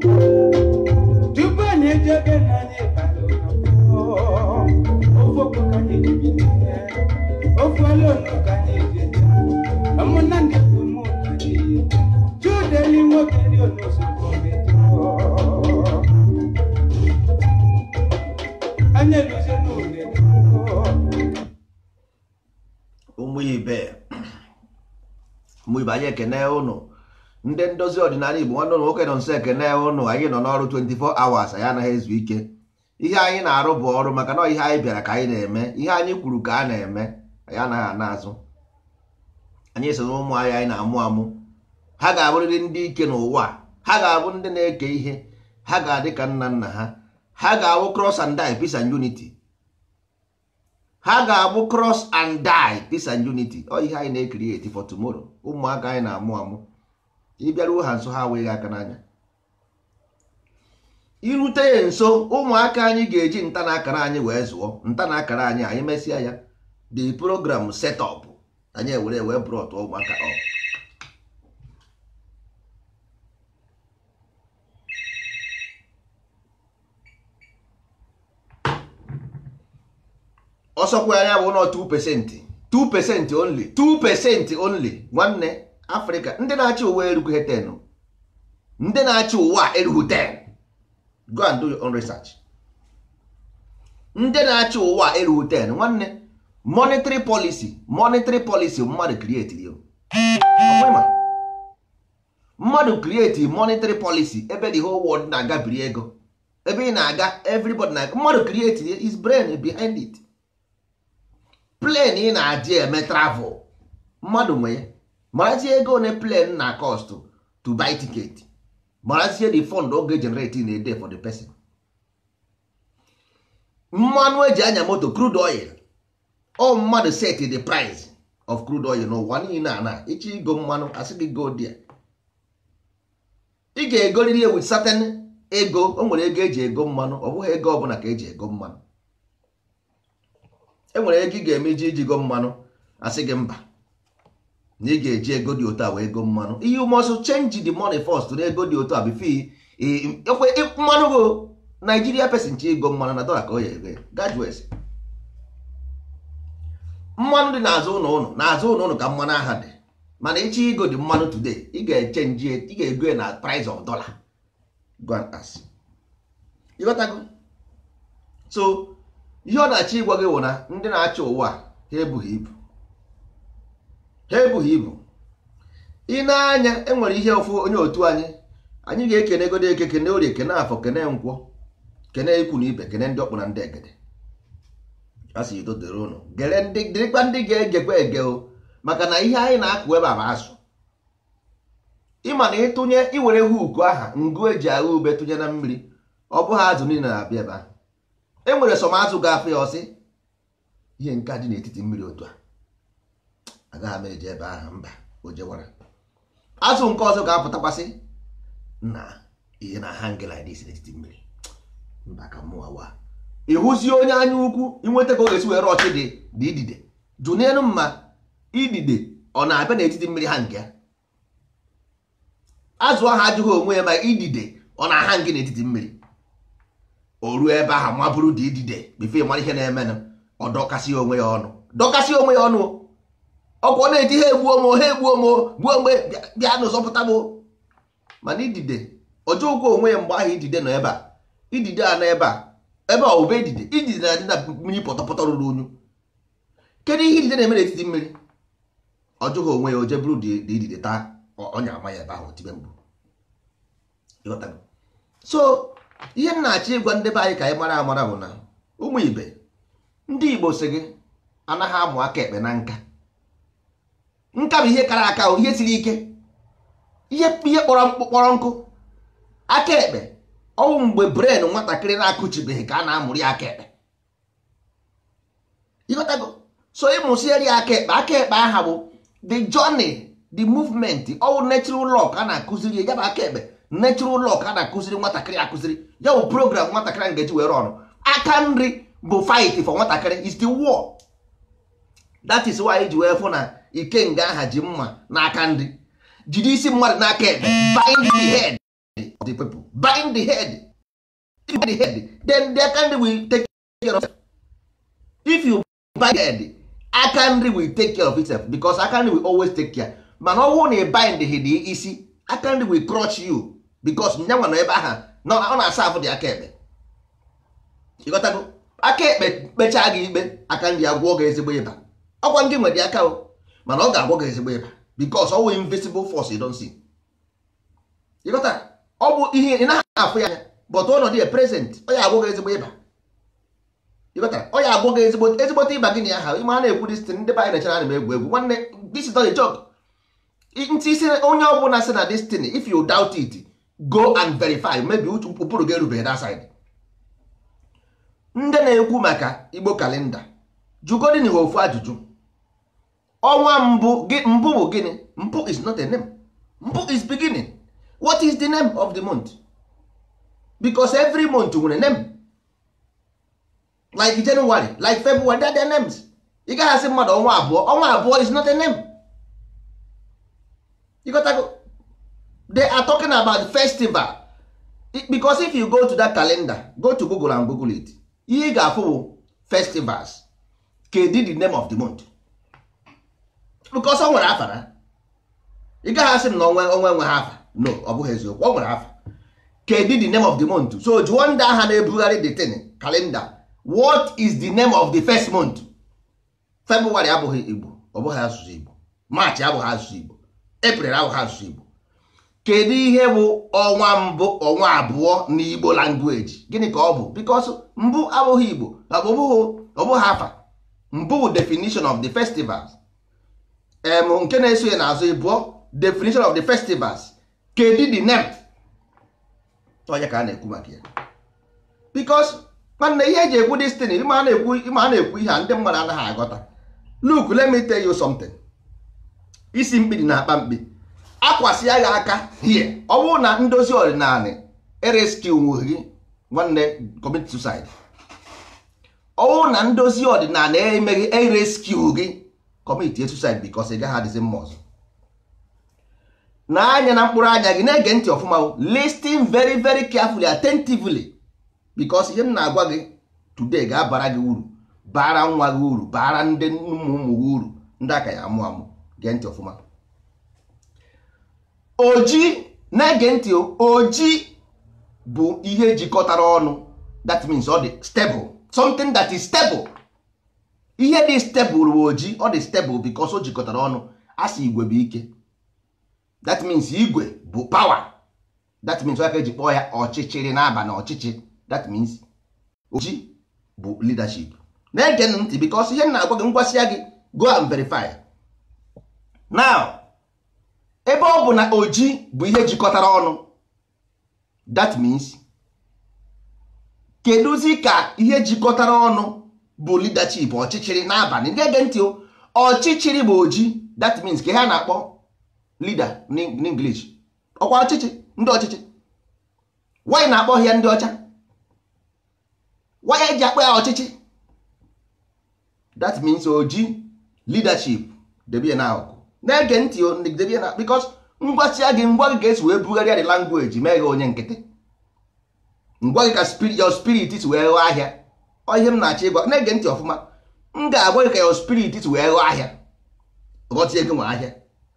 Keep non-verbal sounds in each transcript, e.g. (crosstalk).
tupu anyị eji oge nwoke ndị ndozi ọdịnala igbo nwanne ụlọ nwoke nọ nso enwe ụnụ anyị nọ n'ọrụ 24 hours anyị anaghị ezu ike ihe anyị na-arụ bụ ọrụ maka na ihe anyị bịara ka anyị na-eme ihe anyị kwuru ka a na-eme anyị anaghị ana azụ anyị so na ụmụ anyị anyị na-amụ amụ ha ga-abụrịrị ndị ike n'ụwa ha ga-abụ ndị na-eke ihe ha ga-adị ka nna nna ha ha ga-abụ cross and die peace and unity ha ga-abụ cross and die peace and unity ọ ihe anyị na-ekiri eti for tomorrow ụmụaka anyị na-amụ amụ ị bịaruo ha nso ha wee aka n'anya irute ya nso ụmụaka anyị ga-eji nta na akara anyị wee zụọ nta na akara anyị anyị mesịa ya the program setup anyị ewere wee brọt ụmụaka ọ ọsọkwa anya bụ na 2 pesenti 2 pesenti only 2 pesenti only nwanne afrịka ndị na-achị ụwa erughi ten ndị na-achị ụwa erughi ten go and do your own research ndị na-achị ụwa erughi ten nwanne monetary policy monetary policy mmadụ create yo mmadụ create monetary policy ebe the whole world na-aga biri ego ebe ị na-aga everybody na mmadụ create his brain behind it plane ị na-adị eme travel mmadụ nwe ya marazie ego one plane na cost to buy ticket marazie the fund ọ ga-egenerate in for the person mmanụ eji anya moto crude oil o mmadụ set the price of crude oil n'ụwa niile a na ịchọ igo mmanụ asị go dia ị ga-egoriri wit certain ego o nwere ego eji ego mmanụ ọ bụghị ego ọbụla ka eji ego mmanụ enwere ego ị ga-eme iji ijigo mmanụ asị gị mba na ị ga-eji ego dị otu a wee go mmanụ ihe umeọsụ chenji de money first na ego dị otu a bifo ekwe mmanụ go Naijiria pesin chi ego mmanụ na dọla ka ọ ya ere graduates mmanụ dị n'azụ ụlọ ụlọ n'azụ ụlọ ụlọ ka mmanụ aha dị mana ịchọ ego dị mmanụ tude ị ga-echenji ị ga-ego na price of dollar gwantas ịghọtago so ihe ọ na-achọ ịgwa gị bụ na ndị na acha ụwa ha ebughị ibu ha ebughị ibu ị na-anya e nwere ihe ụfụ onye otu anyị anyị ga-ekene egodo eke kene orie kene afọ kene nkwọ kene ikwu na ibe kene ndị ọkpụ na ndị egede asị udo dịrị ụnụ gere ndị dịrịkwa ndị ga-egekwa ege o maka na ihe anyị na-akụ ebe a azụ ịma na ịtụnye iwere huku aha ngụ eji agha ube tụnye na mmiri ọ bụghị azụ niile na-abịa ebe ahụ e nwere sọm azụ ga-afụ ya ọsị ihe nke dị n'etiti mmiri otu a agaghị m eji ebe ahụ mba o jewara azụ nke ọzọ ga-apụtakwasị na ihe na hang like this n'etiti mmiri mba ka mụwa wa ịhụzie onye anya ukwu inweta ka ọ ga-esi were ọchị dị dị idide jụnelu mma idide ọ na-abịa n'etiti mmiri ha nke ya azụ ahụ ajụghị onwe ya ma idide ọ na-aha ngị n'etiti mmiri o ruo ebe ahụ mabụrụ dị idide bifo mara ihe na-emenụ ọ dọkasị onwe ya ọnụ dọkasị onwe ya ọnụ ọkwa na-eji ha egbuo mo ha egbuo mo gbuo mgbe bịa na ụzọpụta m mana idide ọjọọ ụkwụ onwe ya mgbe ahụ idide nọ ebe a idide a n'ebe ebe a ebe a obe idide idide na-adị na mmiri pọtọpọtọ ruru unyu kedu ihe idide na-eme n'etiti mmiri ọjọọ onwe ya oje bụrụ dị idide taa ọnya ama ya ebe ahụ tibe mbụ so ihe m na-achọ ịgwa ndị be anyị ka anyị mara amara bụ na ụmụ ibe ndị Igbo si gị anaghị amụ aka ekpe na nka nka bụ ihe kara aka ihe siri ike ihe kpọrọ nkụ aka ekpe ọnwụ mgbe bren nwatakịrị na-akụchibeghị ka a na-amụrụ ya aka ekpe ịghọtago so ịmụsieri aka ekpe aka ekpe aha bụ the journey the movement ọwụ natural law ka a na-akụziri ya bụ aka ekpe natural law ka a na-akụziri nwatakịrị akụziri ya bụ program nwatakịrị ngeji were ọrụ aka nri bụ fight for nwatakịrị is the war that is why e ji wee fụ na ikenga aha ji mma n'aka ndị jide isi mmadụ n'aka ebe bind the head of the people bind the head if the head then aka nri will take care of if you bind the head aka nri will take care of itself because aka nri will always take care mana ọ wụ na ị bind the head isi aka nri will crush you because nyanwa nọ ebe aha na ọ na-asa afụ dị aka ekpe aka ekpe gị ikpe aka nri gị ezigbo ịba ọkwa ndị nwere aka mana ọ ga-agwọ gị ezigbo ịba because ọ invisible force you don't see ịgọta ọ bụ ihe ị naghị afụ ya anya but ọnọdụ ya prezent ọ ya agwọ gị ezigbo ịba ịgọta ọ ya agwọ gị ezigbo ezigbote ịba gị na ya ha a na-ekwu dịstin ndị be anyị nechara ana m egwu egwu nwanne this is not ntị isi onye ọ bụla sị na destin if you doubt it go and verify maybe ụkpụrụ gị erubeghị that side ndị na-ekwu maka igbo kalenda jụgodin ha ofu ajụjụ ọnwa mbụ mbụ bụ gịnị mbụ is not a name mbụ is beginning what is the name of the month because every month nwere name like January like February that their names ị gaghị asị mmadụ ọnwa abụọ ọnwa abụọ is not a name you got to go. they are talking about festival because if you go to that calendar go to Google and Google it ihe ị ga-afụ bụ festivals kedu the name of the month because ọ nwere afa na ị gaghị asị m na onwe onwe nwe ha afa no ọ bụghị eziokwu ọ nwere afa kedu the name of the month so jụọ ndị agha na-ebugharị the tin kalenda what is the name of the first month february abụghị igbo ọ bụghị asụsụ igbo march abụghị asụsụ igbo april abụghị asụsụ igbo kedu ihe bụ ọnwa mbụ ọnwa abụọ na igbo language gịnị ka ọ bụ because mbụ abụghị igbo ọ bụghị afa mbụ definition of the festivals em nke na-eso ya n'azụ ịbụọ definition of the festivals kedu the name ọnya ka a na-ekwu maka ya because nwanne ihe eji ekwu destin ịma a na-ekwu ihe a ndị mmadụ anaghị aghọta look let me tell you something isi mkpi dị na akpa mkpi akwasị agha aka hie ọ bụrụ na ndozi ọdịnala ereskiwu gị nwanne commit suicide ọ bụrụ na ndozi ọdịnala emeghị ereskiwu gị commit suicide because ị gaghị adịzi mma ọzọ na anya na mkpụrụ anya gị na-ege ntị ọfụma listing very very carefully attentively because ihe m na-agwa gị today ga-abara gị uru bara nwa gị uru bara ndị ụmụ ụmụ gị uru ndị aka ya amụ amụ gee ntị ọfụma oji na-ege ntị oji bụ ihe jikọtara ọnụ that means ọ dị stable something that is stable ihe dị stebụl ojii ọ dị stebụl bikos o jikọtara ọnụ asị igwe bụ ike that means igwe bụ pawa that means aka eji kpọọ ya ọchịchịrị n'aba na ọchịchị that means ojii bụ leadership na-ege ntị bikos ihe na-agwa gị ngwasị ya gị go and verify now ebe ọ bụ na oji bụ ihe jikọtara ọnụ that means kedụzi ka ihe jikọtara ọnụ bụ leadership ọchịchịrị n'abalị ndị ege ntị ọchịchịrị bụ oji that means ka ha na-akpọ leader n'English ọkwa ọchịchị ndị ọchịchị wanyị na-akpọ ya ndị ọcha wanyị eji akpọ ya ọchịchị that means oji leadership debe na n'akụkụ na-ege ntị debe na because ngwasịa gị ngwa gị ga-esi wee bugharịa the language mee gị onye nkịtị ngwa gị ka your spirit si wee ghọọ ahịa ihe m na-achọ ịgwa na-ege ntị ọfụma m ga-agwa ka your spirit wee ghọọ ahịa ghọta ego nwe ahịa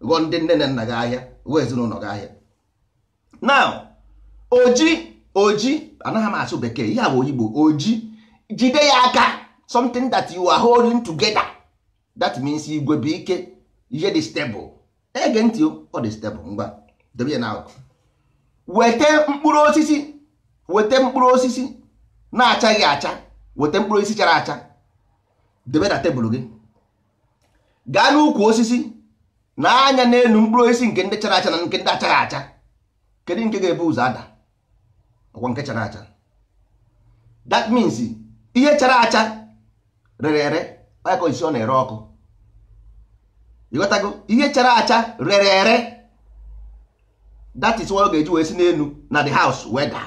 ghọọ ndị nne na nna gị ahịa ghọọ ezinụlọ gị ahịa now oji oji anaghị m asụ bekee ihe bụ oyigbo oji jide ya aka something that you are holding together that means igwe bụ ike ihe dị stable ege ntị ọ dị stable ngwa debe na na weta mkpụrụ osisi weta mkpụrụ osisi na-achaghị acha weta mkpụrụ osisi chara acha debe na tebụl gị gaa n'ukwu osisi na anya n'elu mkpụrụ osisi nke ndị chara acha na nke ndị achaghị acha kedu nke ga-ebu ụzọ ada ọkwa nke chara acha that means ihe chara acha rere ere ọyakọ isi ọ na-ere ọkụ ịghọtago ihe chara acha rere ere that is why ọ ga-eji wee si n'elu na the house weda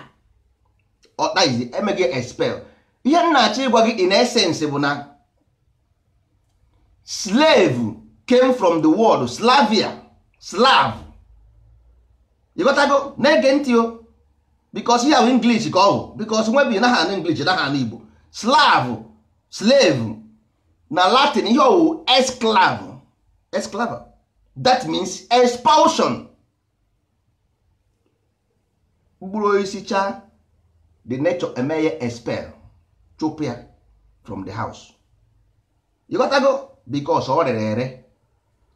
ọkpa izi emeghị expel ihe m na-achọ ịgwa gị in essence bụ na slave came from the word slavia slav ịghọtago na-ege ntị o bikos ihe ahụ english ka ọ bụ bikos nwebi naha anụ english naha na igbo slav slave na latin ihe owu esclav esclava that means expulsion mkpụrụ osisi cha the nature eme ya expel chụp ya from the house you got to go because ọ rere ere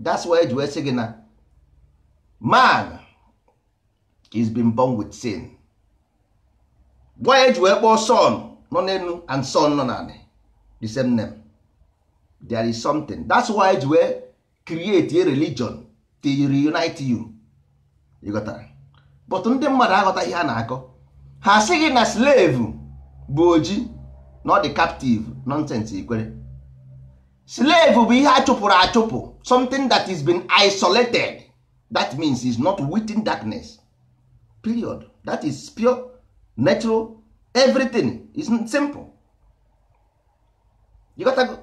that's why eji wee sị gị na man is been born with sin gwa eji wee kpọọ son nọ n'elu and son nọ n'ala the same name there is something that's why eji wee create a religion to reunite you you got that but ndị mmadụ aghọta ihe a na-akọ ha sị gị na slave bụ oji not the captive nonsense ikwere slave bụ ihe a achụpụ something that is been isolated that means is not within darkness period that is pure natural everything is simple you got to go.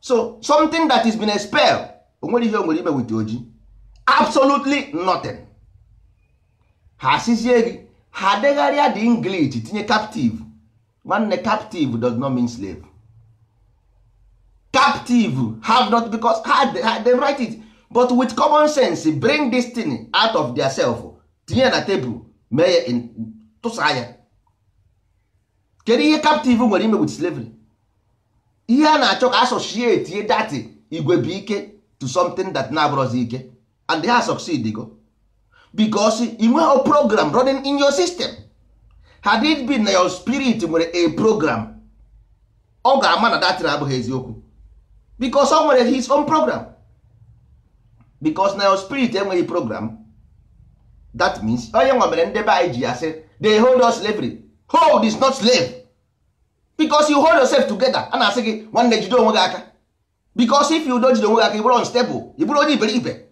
so something that is been expelled onwere ihe o ime wit oji absolutely nothing ha asịzie gị ha degharịa the english tinye captive nwanne captive does not mean slave captive have not because ha ha write it but with common sense bring this thing out of their self tinye na table, mee in tụsa ya kedu ihe captive nwere ime with slavery ihe a na-achọ ka associate ye dati igwe bụ ike to something that na-abụrọzi ike and they ha succeed go because ị nweghị program running in your system had it been na your spirit nwere a program ọ ga-ama na datin abụghị eziokwu because o nwere his own program because na your spirit enweghị program that means onye nwa ndebe anyị ji ya they hold us slavery hold is not slave because you hold yourself together a na-asị gị nwanne jide onwe gị aka because if you don jide onwe gị aka ị bụrụ unstable ị onye iberibe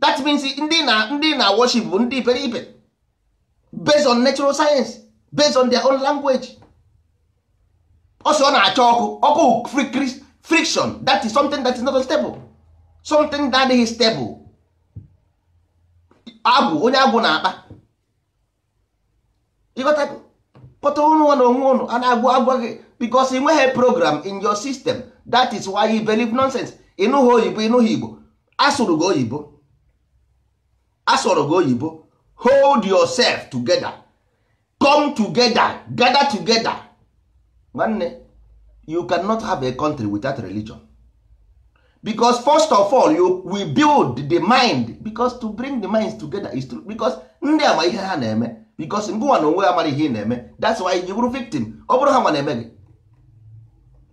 that means ndị na ndị na worship bụ ndị iberibe based on natural science based on their own language also ọ na-acha ọkụ ọkụ friction that is something that is not stable something that is stable agwụ onye agwụ na-akpa ịghọta pụta ụnụ na onwe ụnụ a na-agwụ agwa gị bikos ị nweghị program in your system that is why you believe nonsense ịnụghị oyibo ịnụghị igbo asụrụ gị oyibo asụrụ gị oyibo hold yourself together come together gather together nwanne you cannot have a country without religion because first of all you we build the mind because to bring the minds together is to because ndị ama ihe ha na-eme because ngụwa na onwe ha ihe na na-eme that's why you will victim ọ bụrụ ha a na-eme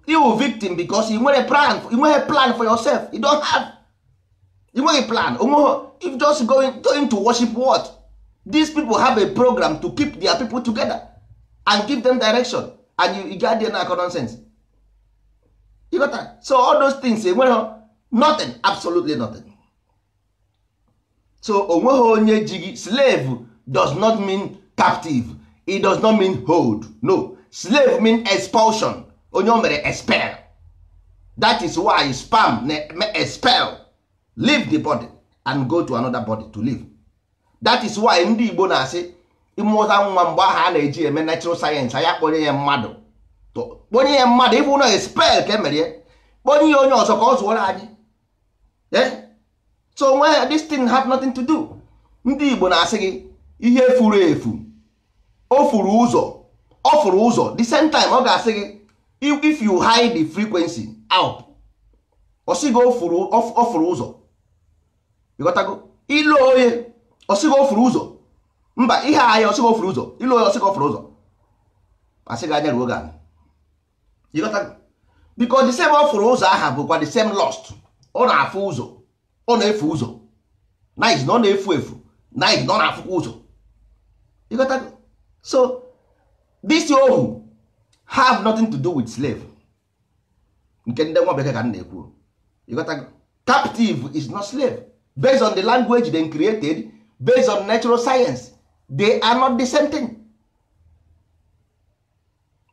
gị victim because ị nwere plan nweghị plan for yourself you don't have made a plan onweghị if just going, going to worship what these people have a program to keep their people together and give them direction and you, you get there na nonsense you got that? so all those things enweghị eh, nothing absolutely nothing so onweghị onye ji slave does not mean captive it does not mean hold no slave mean expulsion onye o mere expel that is why spam na expel leave the body and go to another body to live that is why ndị Igbo na-asị ịmụta nwa mgbe ahụ a na-eji eme natural sayensị anya kponye ya mmadụ kponye ya mmadụ ịbụ na spel ka emere ya kponye ya onye ọzọ ka ọ zụọrọ anyị eh? so nwe this thing have nothing to do ndị Igbo na-asị gị ihe furu efu o furu ụzọ ọ furu ụzọ the same time ọ ga-asị gị if you hide the frequency out ọ sị gị o furu ụzọ onye ọsịghị ofuru ụzọ mba ihe ahịa ọsịghị ofuru ụzọ ịlụ onye ọsịghị ofuru ụzọ asịghị anya ruo gana biko the same ofuru ụzọ aha bụkwa the same lost ọ na-afụ ụzọ ọ na-efu ụzọ night na ọ na-efu efu night na ọ na-afụkwa ụzọ ịghọtago so this ohu have nothing to do with slave nke ndị nwa bekee ka m na-ekwu ịghọtago captive is not slave based on the language they created based on natural science they are not the same thing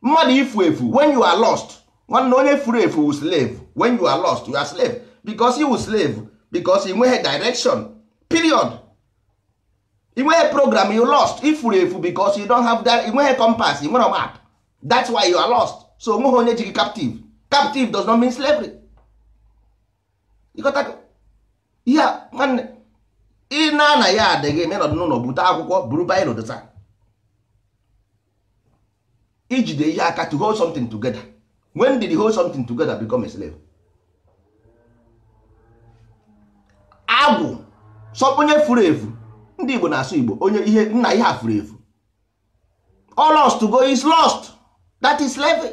mmadụ ifu efu when you are lost nwanne onye furu efu wu slave when you are lost you are slave because you slave because ị nweghị direction period ị nweghị program you lost ifuru efu because you don't have that don't have compass don't have map that's why you are lost so nweghị onye ji gị captive captive does not mean slavery ịghọtago Yeah, nwanne ị na na ya adịghị menọdụ n'ụlọ bute akwụkwọ buru baịro dota ijide ihe aka to hold something together when did hold something together become a slave agwụ sọ onye furu efu ndị igbo na-asụ igbo onye ihe nna ihe a furu efu all to go is lost that is slave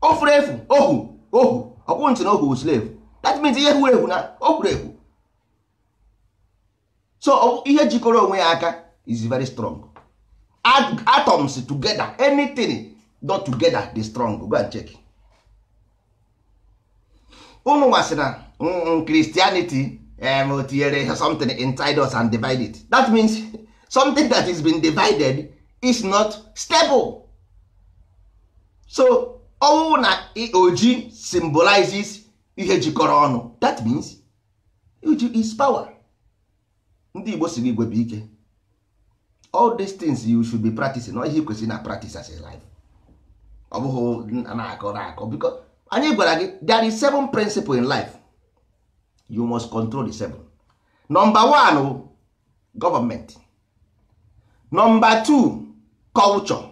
o furu efu ohu ohu ọkwụ ntị na ohu slave that means ihe furu efu na o furu efu so oh, ihe jikọrọ onwe ya aka is very strong atoms together anything not together they're strong go and check unu nwa na mm, mm, christianity eh, tinyere something inside us and divide it that means something that is been divided is not stable so ọnwụ na oji symbolizes ihe jikọrọ ọnụ that means oji is power ndị igbo si igwe bụ ike all these things you should be practicing ọ ihe kwesịrị na practice as a life ọ bụghị na-akọ na-akọ because anyị gwara gị there is seven principle in life you must control the seven number one government number two culture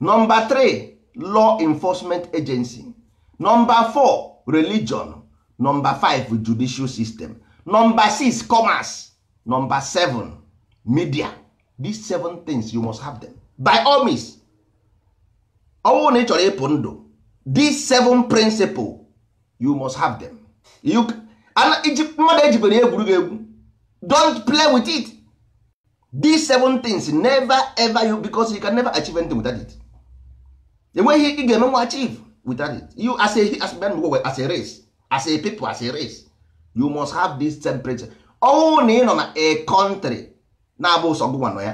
number three law enforcement agency number four religion number five judicial system number six commerce number seven media these seven things you must have them by all means All na ị chọrọ ịpụ ndụ these seven principle you must have them you mmadụ ejibere egwuregwu don't play with it these seven things never ever you because you can never achieve anything without it enweghị ị ga-eme nwa achieve without it you as a as a, as a race as a people as a race you must have this principles. ọnwụ na ị nọ na a country na-abụ ụsọ gụnwa nọ ya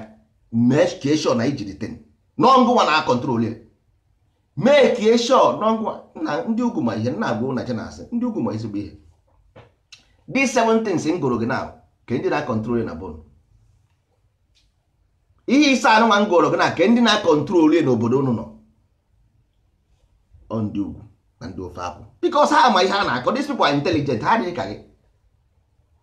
mee kieshon na ijiri ten nọngụnwa na akọntrol ya mee kieshon nọngụnwa na ndị ugwu ma ihe nna agwa ụnacha na asị ndị ugwu ma ezigbo ihe dị seven things m gụrụ gị na ke ndị na-akọntrol na bon ihe ise anụnwa m gụrụ gị na ke ndị na-akọntrol ya n'obodo unu nọ ọ ndị ugwu na ndị ofe akwụ because ha ama ihe ha na-akọ these people are ha adịghị ka gị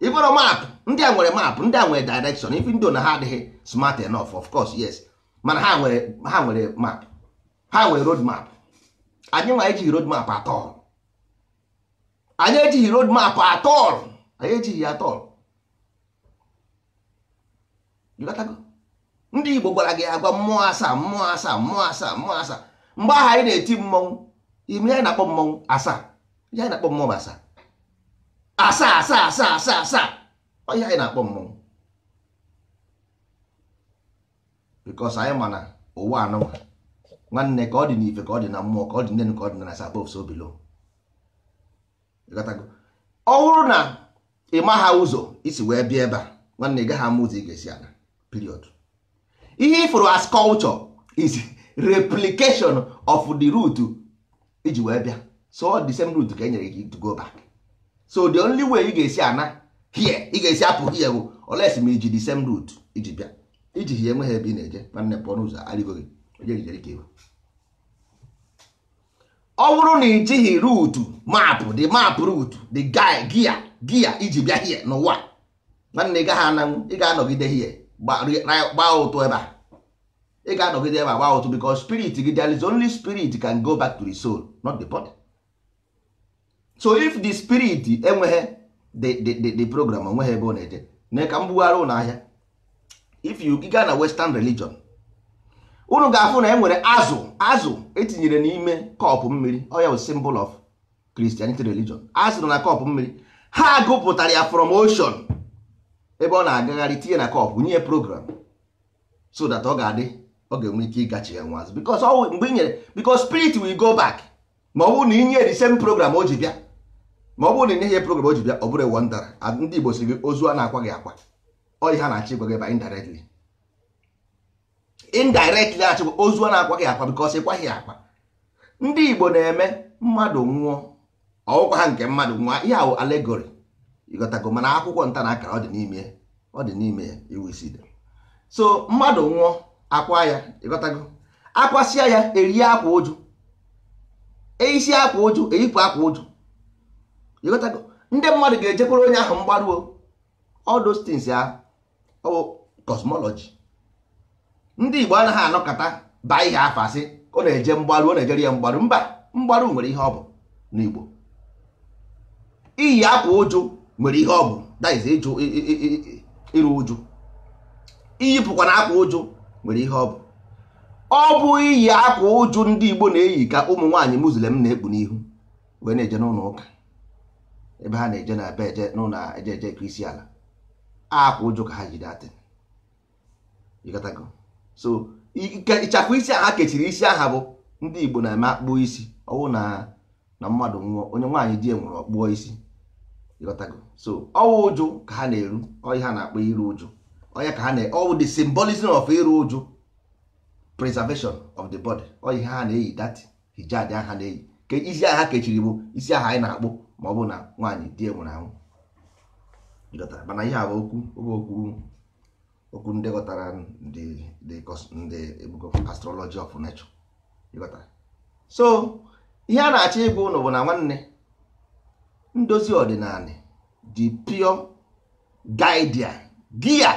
ịbụrụ maapụ ndị a nwere maapụ ndị a nwere direction ife ndị na ha adịghị smart enough of course yes mana ha nwere ha nwere map ha nwere road map anyị nwa ejighị road map atọl anyị ejighị road map atọl anyị ejighị atọl ndị Igbo gwara gị agwa mmụọ asaa mmụọ asaa mmụọ asaa mmụọ asaa mgbe ahụ anyị na-eti mmọnwụ ime anyị na-akpọ mmọnwụ asaa ihe anyị na-akpọ mmọnwụ asaa asaa asaa asaa asaa asaa ọ ihe anyị na-akpọ mmọnwụ bikos anyị ma na ụwa anụnwa nwanne ka ọ dị n'ife ka ọ dị na mmụọ ka ọ dị nnenu, ka ọ dị na sabov so bilo ọ bụrụ na ị maha ụzọ isi wee bịa ebe a nwanne ị gaghị ama ụzọ ị ga-esi aga period ihe ifụrụ as culture is replication of the root iji wee bịa so the same root ka e nyere gị to go back so the only way ị ga-esi ana hie ị ga-esi apụ hie bụ oles ma iji the same route iji bịa iji hie enweghị ebe ị na-eje nwanne pụọ n'ụzọ arịgoghị ọ bụrụ na ị jighị ruutu maapụ the map route the guy gia gia iji bịa hie n'ụwa nwanne ị gaghị ananwụ ị ga-anọgide hie gbaa ụtụ ebe a ị ga-anọgide ebe a gbaa ụtụ because spirit gị there is only spirit can go back to the soul not the body. so if the spirit enweghị the program onweghị ebe ọ na-eje na ka m bugharị ụlọ ahịa if you gaa na western religion unu ga-afụ na e nwere azụ azụ etinyere n'ime kọpụ mmiri ọ ya symbol of christianity religion azụ na kọpụ mmiri ha gụpụtara ya from ocean ebe ọ na-agagharị tinye na kọpụ nye program so that ọ ga-adị ọ ga-enwe ike ịgachi ya nwa azụ because mgbe i nyere because spirit will go back ma ọ bụrụ na inye the same program o ji bịa ma ọ bụrụ na inyeghị program o ji bịa ọ bụrụ ewu ndara ndị Igbo si gị ozu a na-akwa gị akwa ọ ihe a na-achị gwa gị ba indirectly indirectly achịkwa ozu a na-akwa gị akwa because ịkwaghị akwa ndị Igbo na-eme mmadụ nwụọ ọwụkwa ha nke mmadụ nwụọ ihe ahụ alegori ịghọtago mana akwụkwọ nta na akara ọ dị n'ime ọ dị n'ime ya iwu isi so mmadụ nwụọ akwa ya ịghọtago akwasịa ya erie akwa ụjụ eisi akwa ụjụ eyipụ akwa ụjụ ndị mmadụ ga pụrụ onye ahụ mgbaruo ọdụ those ya oh, ndị Igbo anaghị anọkọta baa ihe afọ asị ọ na-eje mgbaru ọ na-ejere ya mgbaru mba mgbaru nwere ihe ọ bụ n'Igbo iyi akwa ụjụ nwere ihe ọ bụ that ịjụ ịrụ ụjụ iyipụkwa na akwa ụjụ nwere ihe ọ bụ ọ bụ iyi akwa ụjụ ndị Igbo na-eyi ka ụmụ nwaanyị Muslim na-ekpu n'ihu wee na-eje n'ụlọ ụka ebe ha na-eje na be eje n'ụlọ eje eje isi ala akwa ụjụ ka ha jide atịn ịgatago so ịchakwa isi aha kechiri isi aha bụ ndị igbo na-eme akpụọ isi ọwụ na na mmadụ nwụọ onye nwaanyị di nwụrụ ọkpụọ isi ịghọtago so ọwụ ụjụ ka ha na-eru ọhịa ha na-akpọ iru ụjụ ọhịa ka ha na ọwụ the symbolism of iru ụjụ preservation of the body ọhịa ha na-eyi that hijab aha na-eyi ka isi aha kechiri bụ isi aha anyị na-akpụ ma ọ bụ na nwaanyị di nwụrụ anwụ mana ihe a bụ okwu okwu ndị ghọtara ndị astrology of nature so ihe a na-achọ ịbụ ụlọ bụ na nwanne ndozi ọdịnala the pure guide gia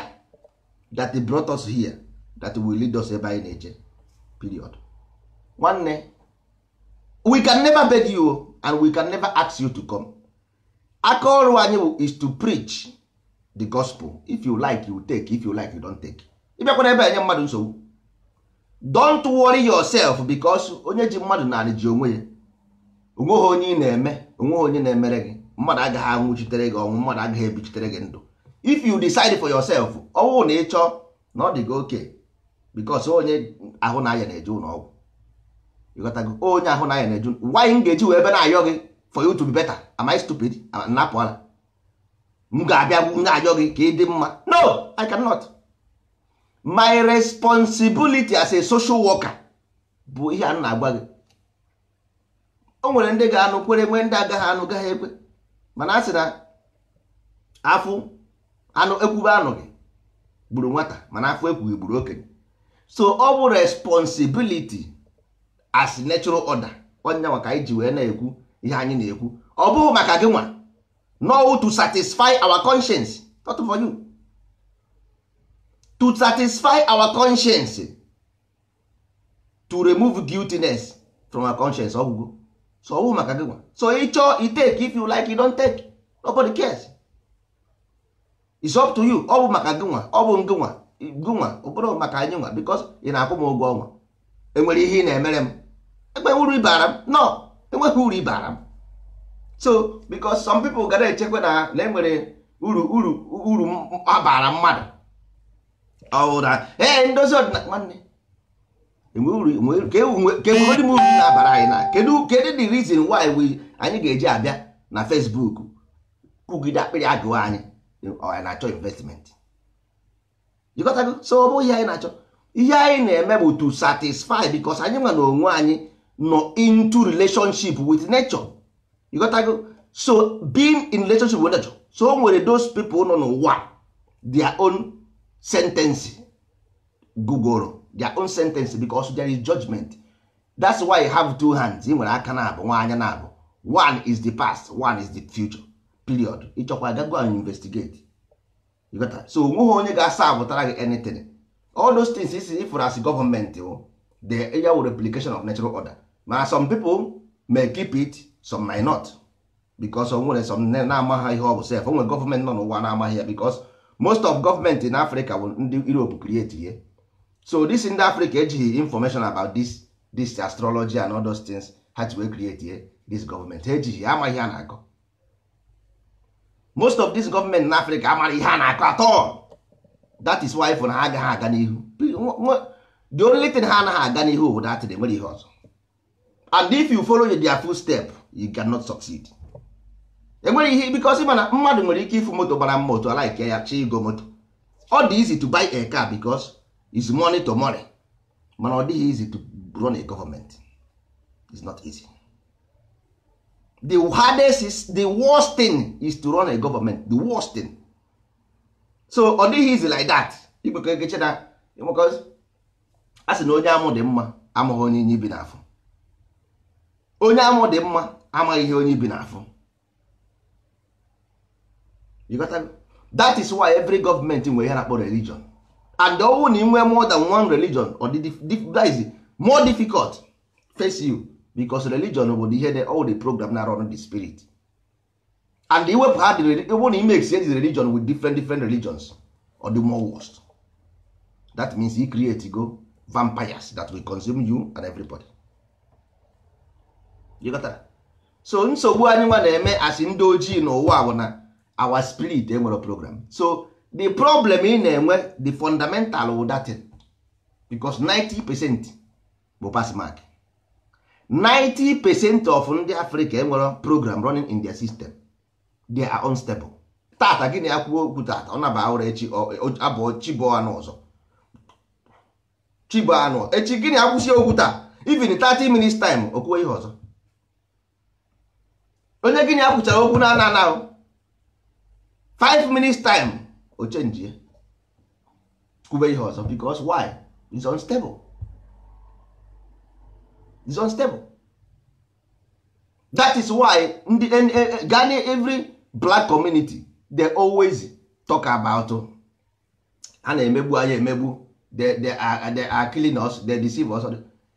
that brought us here that will lead us ebe anyị na-eje period nwanne we can never beg you and we can never ask you to come aka ọrụ anyị is to preach the gospel if you like you take if you like you don't take ịbịakwana ebe enye mmadụ nsogbu don't worry yourself because onye ji mmadụ naanị ji onwe ya onweghị onye ị na-eme onweghị onye na-emere gị mmadụ agaghị anwụchitere gị ọnwụ mmadụ agaghị ebichitere gị ndụ if you decide for yourself ọnwụ na ịchọ na ọ dị gị oke because onye ahụ na aya na-eje ụlọ onye oh, ahụ na na-eju m ga-eji wee ebe na-ayọ gị for you to be better am I stupid napụ ala m ga-abịa na-ayọ gị ka ị dị mma no I cannot my responsibility as a social worker bụ ihe a na-agwa gị o nwere ndị ga-anụ kwere nwee ndị agaghị anụ gaghị ekwe mana a sị na afụ anụ ekwube anụ gị gburu nwata mana afọ ekwughị gburu okenye so ọ bụ responsibility as natural order onye nwa ka anyị ji wee na-ekwu ihe anyị na-ekwu ọ bụghị maka gị nwa no to satisfy our conscience not for you to satisfy our conscience to remove guiltiness from our conscience ọgwụgwụ so ọ bụghị maka gị nwa so ị chọọ i take if you like you don't take nobody cares it's up to you ọ bụ maka gị nwa ọ bụ gị nwa gị nwa ọ bụrụ maka anyị nwa because ị na-akwụ m ụgwọ ọnwa enwere ihe ị na-emere m ekpewe uru ibara m no enweghị uru ibara m so because some people ga na-echekwa na na enwere uru uru uru abara mmadụ ọwụra ee ndozi ọdịnala nwanne e e ka enwere e m uru na-abara anyị na kedu kedu the reason why we anyị ga-eji abịa na Facebook kụgide akpịrị agụwa anyị anyị na-achọ investment jikọtago so ọ bụghị ihe anyị na-achọ ihe anyị na-eme bụ to satisfy because anyị nwa na onwe anyị nọ into relationship with nature you got to go so being in relationship with nature so o nwere those people nọ n'ụwa their own sentence gugoro their own sentence because there is judgment that's why you have two hands ị nwere aka na abụ nwa anya na abụ one is the past one is the future period ịchọkwa gago and investigate you got to so onweghị onye ga-asa abụtara gị anything all those things isi ifụrụ as gọọmenti ya wụ replication of natural order now some people may keep it some may not because o nwere some na-amaghị ihe ọ bụ sef o nwere gọọmenti nọ n'ụwa na-amaghị ya because most of government in Africa bụ ndị europe create ihe so this ndị Africa, ejighị information about this this astrology and all those things ha ji wee create ihe this gọọmenti ejighị amaghị ha na-akọ most of this government in Africa, amaghị ihe a na-akọ atọ that is why for na ha agaghị aga n'ihu the only thing ha anaghị aga n'ihu bụ dat nwere ihe ọzọ and if you follow their step you cannot succeed enwere ihe because ị mana mmadụ nwere ike ịfụ moto gbara mma otu ala ike ya chi igo moto ọ dị easy to buy a car because it's money to money mana ọ dịghị easy to run a government it's not easy the hardest is the worst thing is to run a government the worst thing so ọ dịghị easy like that igbekọ egeche na because a sị na onye amụ dị mma amụghị onye inyi bi n'afọ onye amụ dị mma amaghị ihe onye bi n'afọ that is why every government nwere ihe na-akpọ religion and ọwụ na inwe more than one religion or the more difficult face you because religion bụ ihe the all the program na run the spirit and iwepụ ha ịbụ na ime exchange religion with different different religions or the more worst that means he create go vampires that will consume you and everybody. ịghọtara so nsogbu anyị nwa na-eme asị ndị ojii n'ụwa bụ na our spirit enwere program so the problem ị na-enwe the fundamental wụ datin because 90 percent bụ pass mark 90 percent of ndị Africa enwere program running in their system they are unstable tata gịnị ya kwuo okwu tata ọ naba ụra echi abụọ chibụọ anụ ọzọ chibụọ anụ echi gịnị akwụsị okwu taa even 30 minutes time okwuo ihe ọzọ onye gịnị akwụchara okwu na ana ana 5 minutes time o chenji ya kwube ihe ọzọ because why is unstable is unstable that is why ndị gani every black community they always talk about a na-emegbu anya emegbu they they are are killing us they deceive us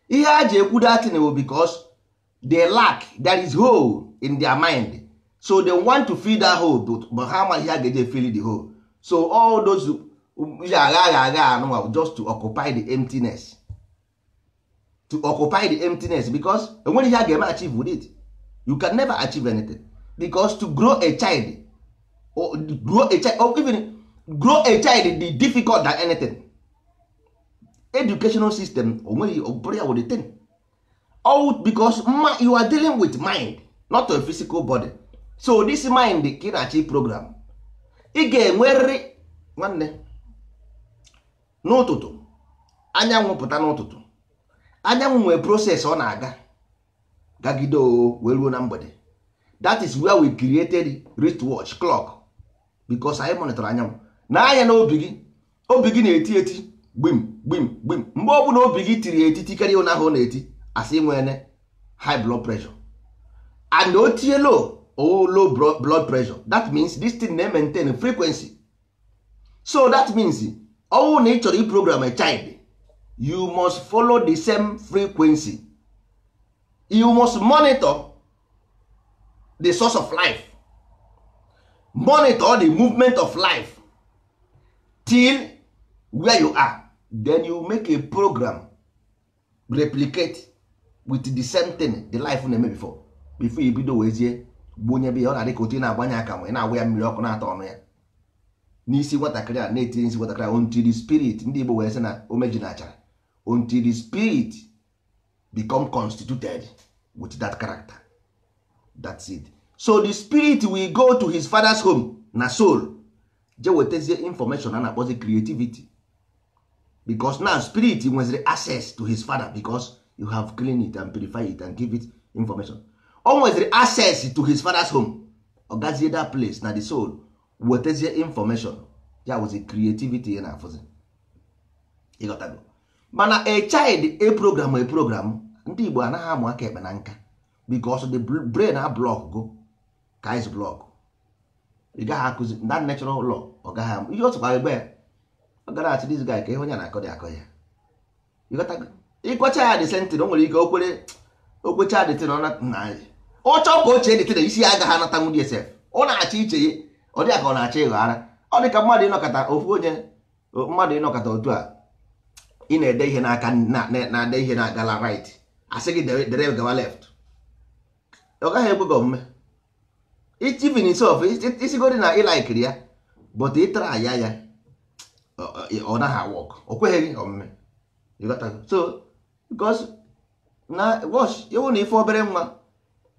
ihe a ji ekwu datin bụ because they lack that is hole in their mind so they want to fill that hole but how much ha ga-eje fill the hole so all those agha agha agha anụnwa just to occupy the emptiness to occupy the emptiness because enwere ihe a ga-eme achieve with it you can never achieve anything because to grow a child or grow a child or even grow a child be difficult than anything educational system onweghị ọbụrụ ya the thing all because you are dealing with mind not a physical body so this mind ka ị na-achị program ị ga-enwerịrị nwanne n'ụtụtụ anyanwụ pụta n'ụtụtụ anyanwụ nwee proses ọ na-aga gagide o wee ruo na mgbede that is where we created wristwatch clock because anyị monitor anyanwụ na anya na obi gị obi gị na-eti eti gbim gbim gbim mgbe ọ bụla obi gị tiri eti karịa ụnahụ na-eti asị nwere high blood pressure and otie low oh, low blood pressure that means this thing na-maintain frequency so that means all na ị chọrọ iprogram a child you must follow the same frequency you must monitor the source of life monitor the movement of life till where you are then you make a program replicate with the same thing the life na-eme before bifo ya bido wezie gbonye be ya ọ na-adị ka otu ị na-agbanye aka ma ị na-agwa ya mmiri ọkụ na-atọ ọnụ ya n'isi nwatakịrị a na-etinye isi nwatakịrị a ontiri spirit ndị Igbo wee sị na omeji na achara ontiri spirit become constituted with that character that it so the spirit will go to his father's home na soul je wetazie information a na-akpọzi creativity because now spirit nweziri access to his father because you have clean it and purify it and give it information o nwetara access to his father's home ọ gazie that place na the soul Wetezie information ya was a creativity ya na-afụzi ịghọtago mana a child a program a program ndị Igbo anaghị amụ aka ekpe na nka because the brain a block go ka is block ị gaghị akụzi that natural law ọ gaghị amụ ihe otu kwa egbe ya ọ gara achị this guy ka ịhụ onye na-akọ dị akọ ya ịghọtago ịkọcha ya dị sentin o nwere ike okwere okwecha dị tin ọ na nna anyị ọ chọọ ka o chee detede isi ya agaghị anata nwunye sef ọ na achị iche ya ọ dị ka ọ na achị ịghọ ara ọ dị ka mmadụ ịnọkọta ofu onye mmadụ ịnọkọta otu a ị na-ede ihe n'aka na-ade ihe na-agala right asị gị dere gawa left ọ gaghị ekwe gị omume itivin sof isigodi na ịlaikiri ya but ịtara aya ya ọ naghị awọk o kweghị gị omume so because na wash ewu na ife obere nwa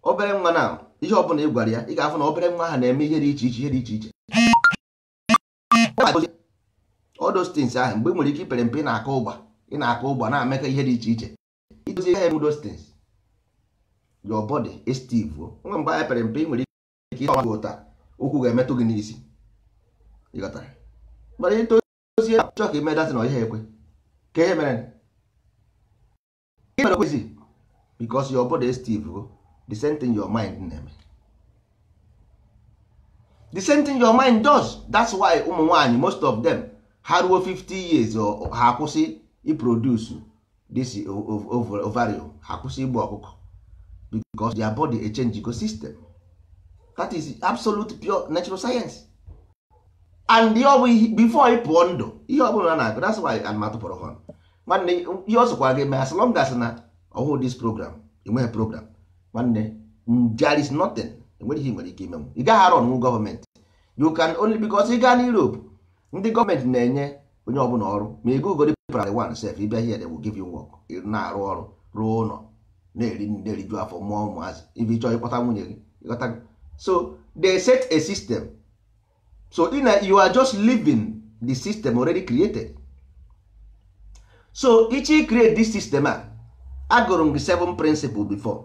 obere nwa na ihe ọbụla ị gwara ya ị ga-afụ na obere nwa ha na-eme ihe dị iche iche ihe dị iche iche odostins ahụ mgbe ị nwere ike ipere mpe ị na-aka ụgba ị na-aka ụgba na-amekọ ihe dị iche iche idozi ya emu dostins nwe mgbe pere mpe nwere ike ụkwụ ga-emetụ gị n'isi ịghọtara mana ka ime na ọhịa ekwe ka ihe mere bikos your body is the same thing your mind na-eme the same thing your mind does that's why ụmụ nwanyị most of them ha ruo 50 years ha akwụsị iproduce this ovario ha akwụsị igbu ọkụkọ because their body a change ecosystem that is absolute pure natural science and before ị ndụ ihe ọbụla na-agụ that's why anụmatụ pụrụ họn nwanne ihe ọ sokwa gị mee as long as na ọhụụ this program enweghị program nwanne there is nothing enweghị nwere ike imenwu ị gaghị arụ gọọmenti you can only because ị gaa na Europe ndị gọọmenti na-enye onye ọbụla ọrụ ma ị gụgodi primary one sef ịbịa here they will give you work na-arụ ọrụ rụọ ụlọ na-eri na-eriju afọ mụọ ụmụazị ibe ịchọọ ịkpọta nwunye gị ịghọta so they set a system so ina you are just living the system already created so ichi create this system a agụrụ m gị seven principle before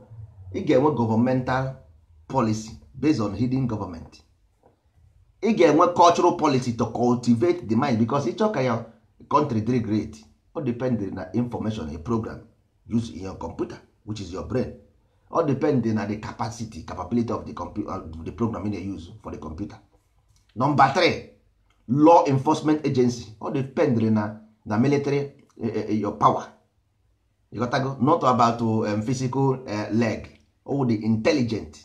ị ga-enwe gọọmental policy based on hidden government ị ga-enwe cultural policy to cultivate the mind because ịchọ ka ya country dị great o dependrị na information a program use in your computer which is your brain o dependrị na the capacity capability of the, uh, the program you use for the computer number three law enforcement agency o depend na na military e, e, e, your power you got to not about um, physical uh, leg all oh, the intelligent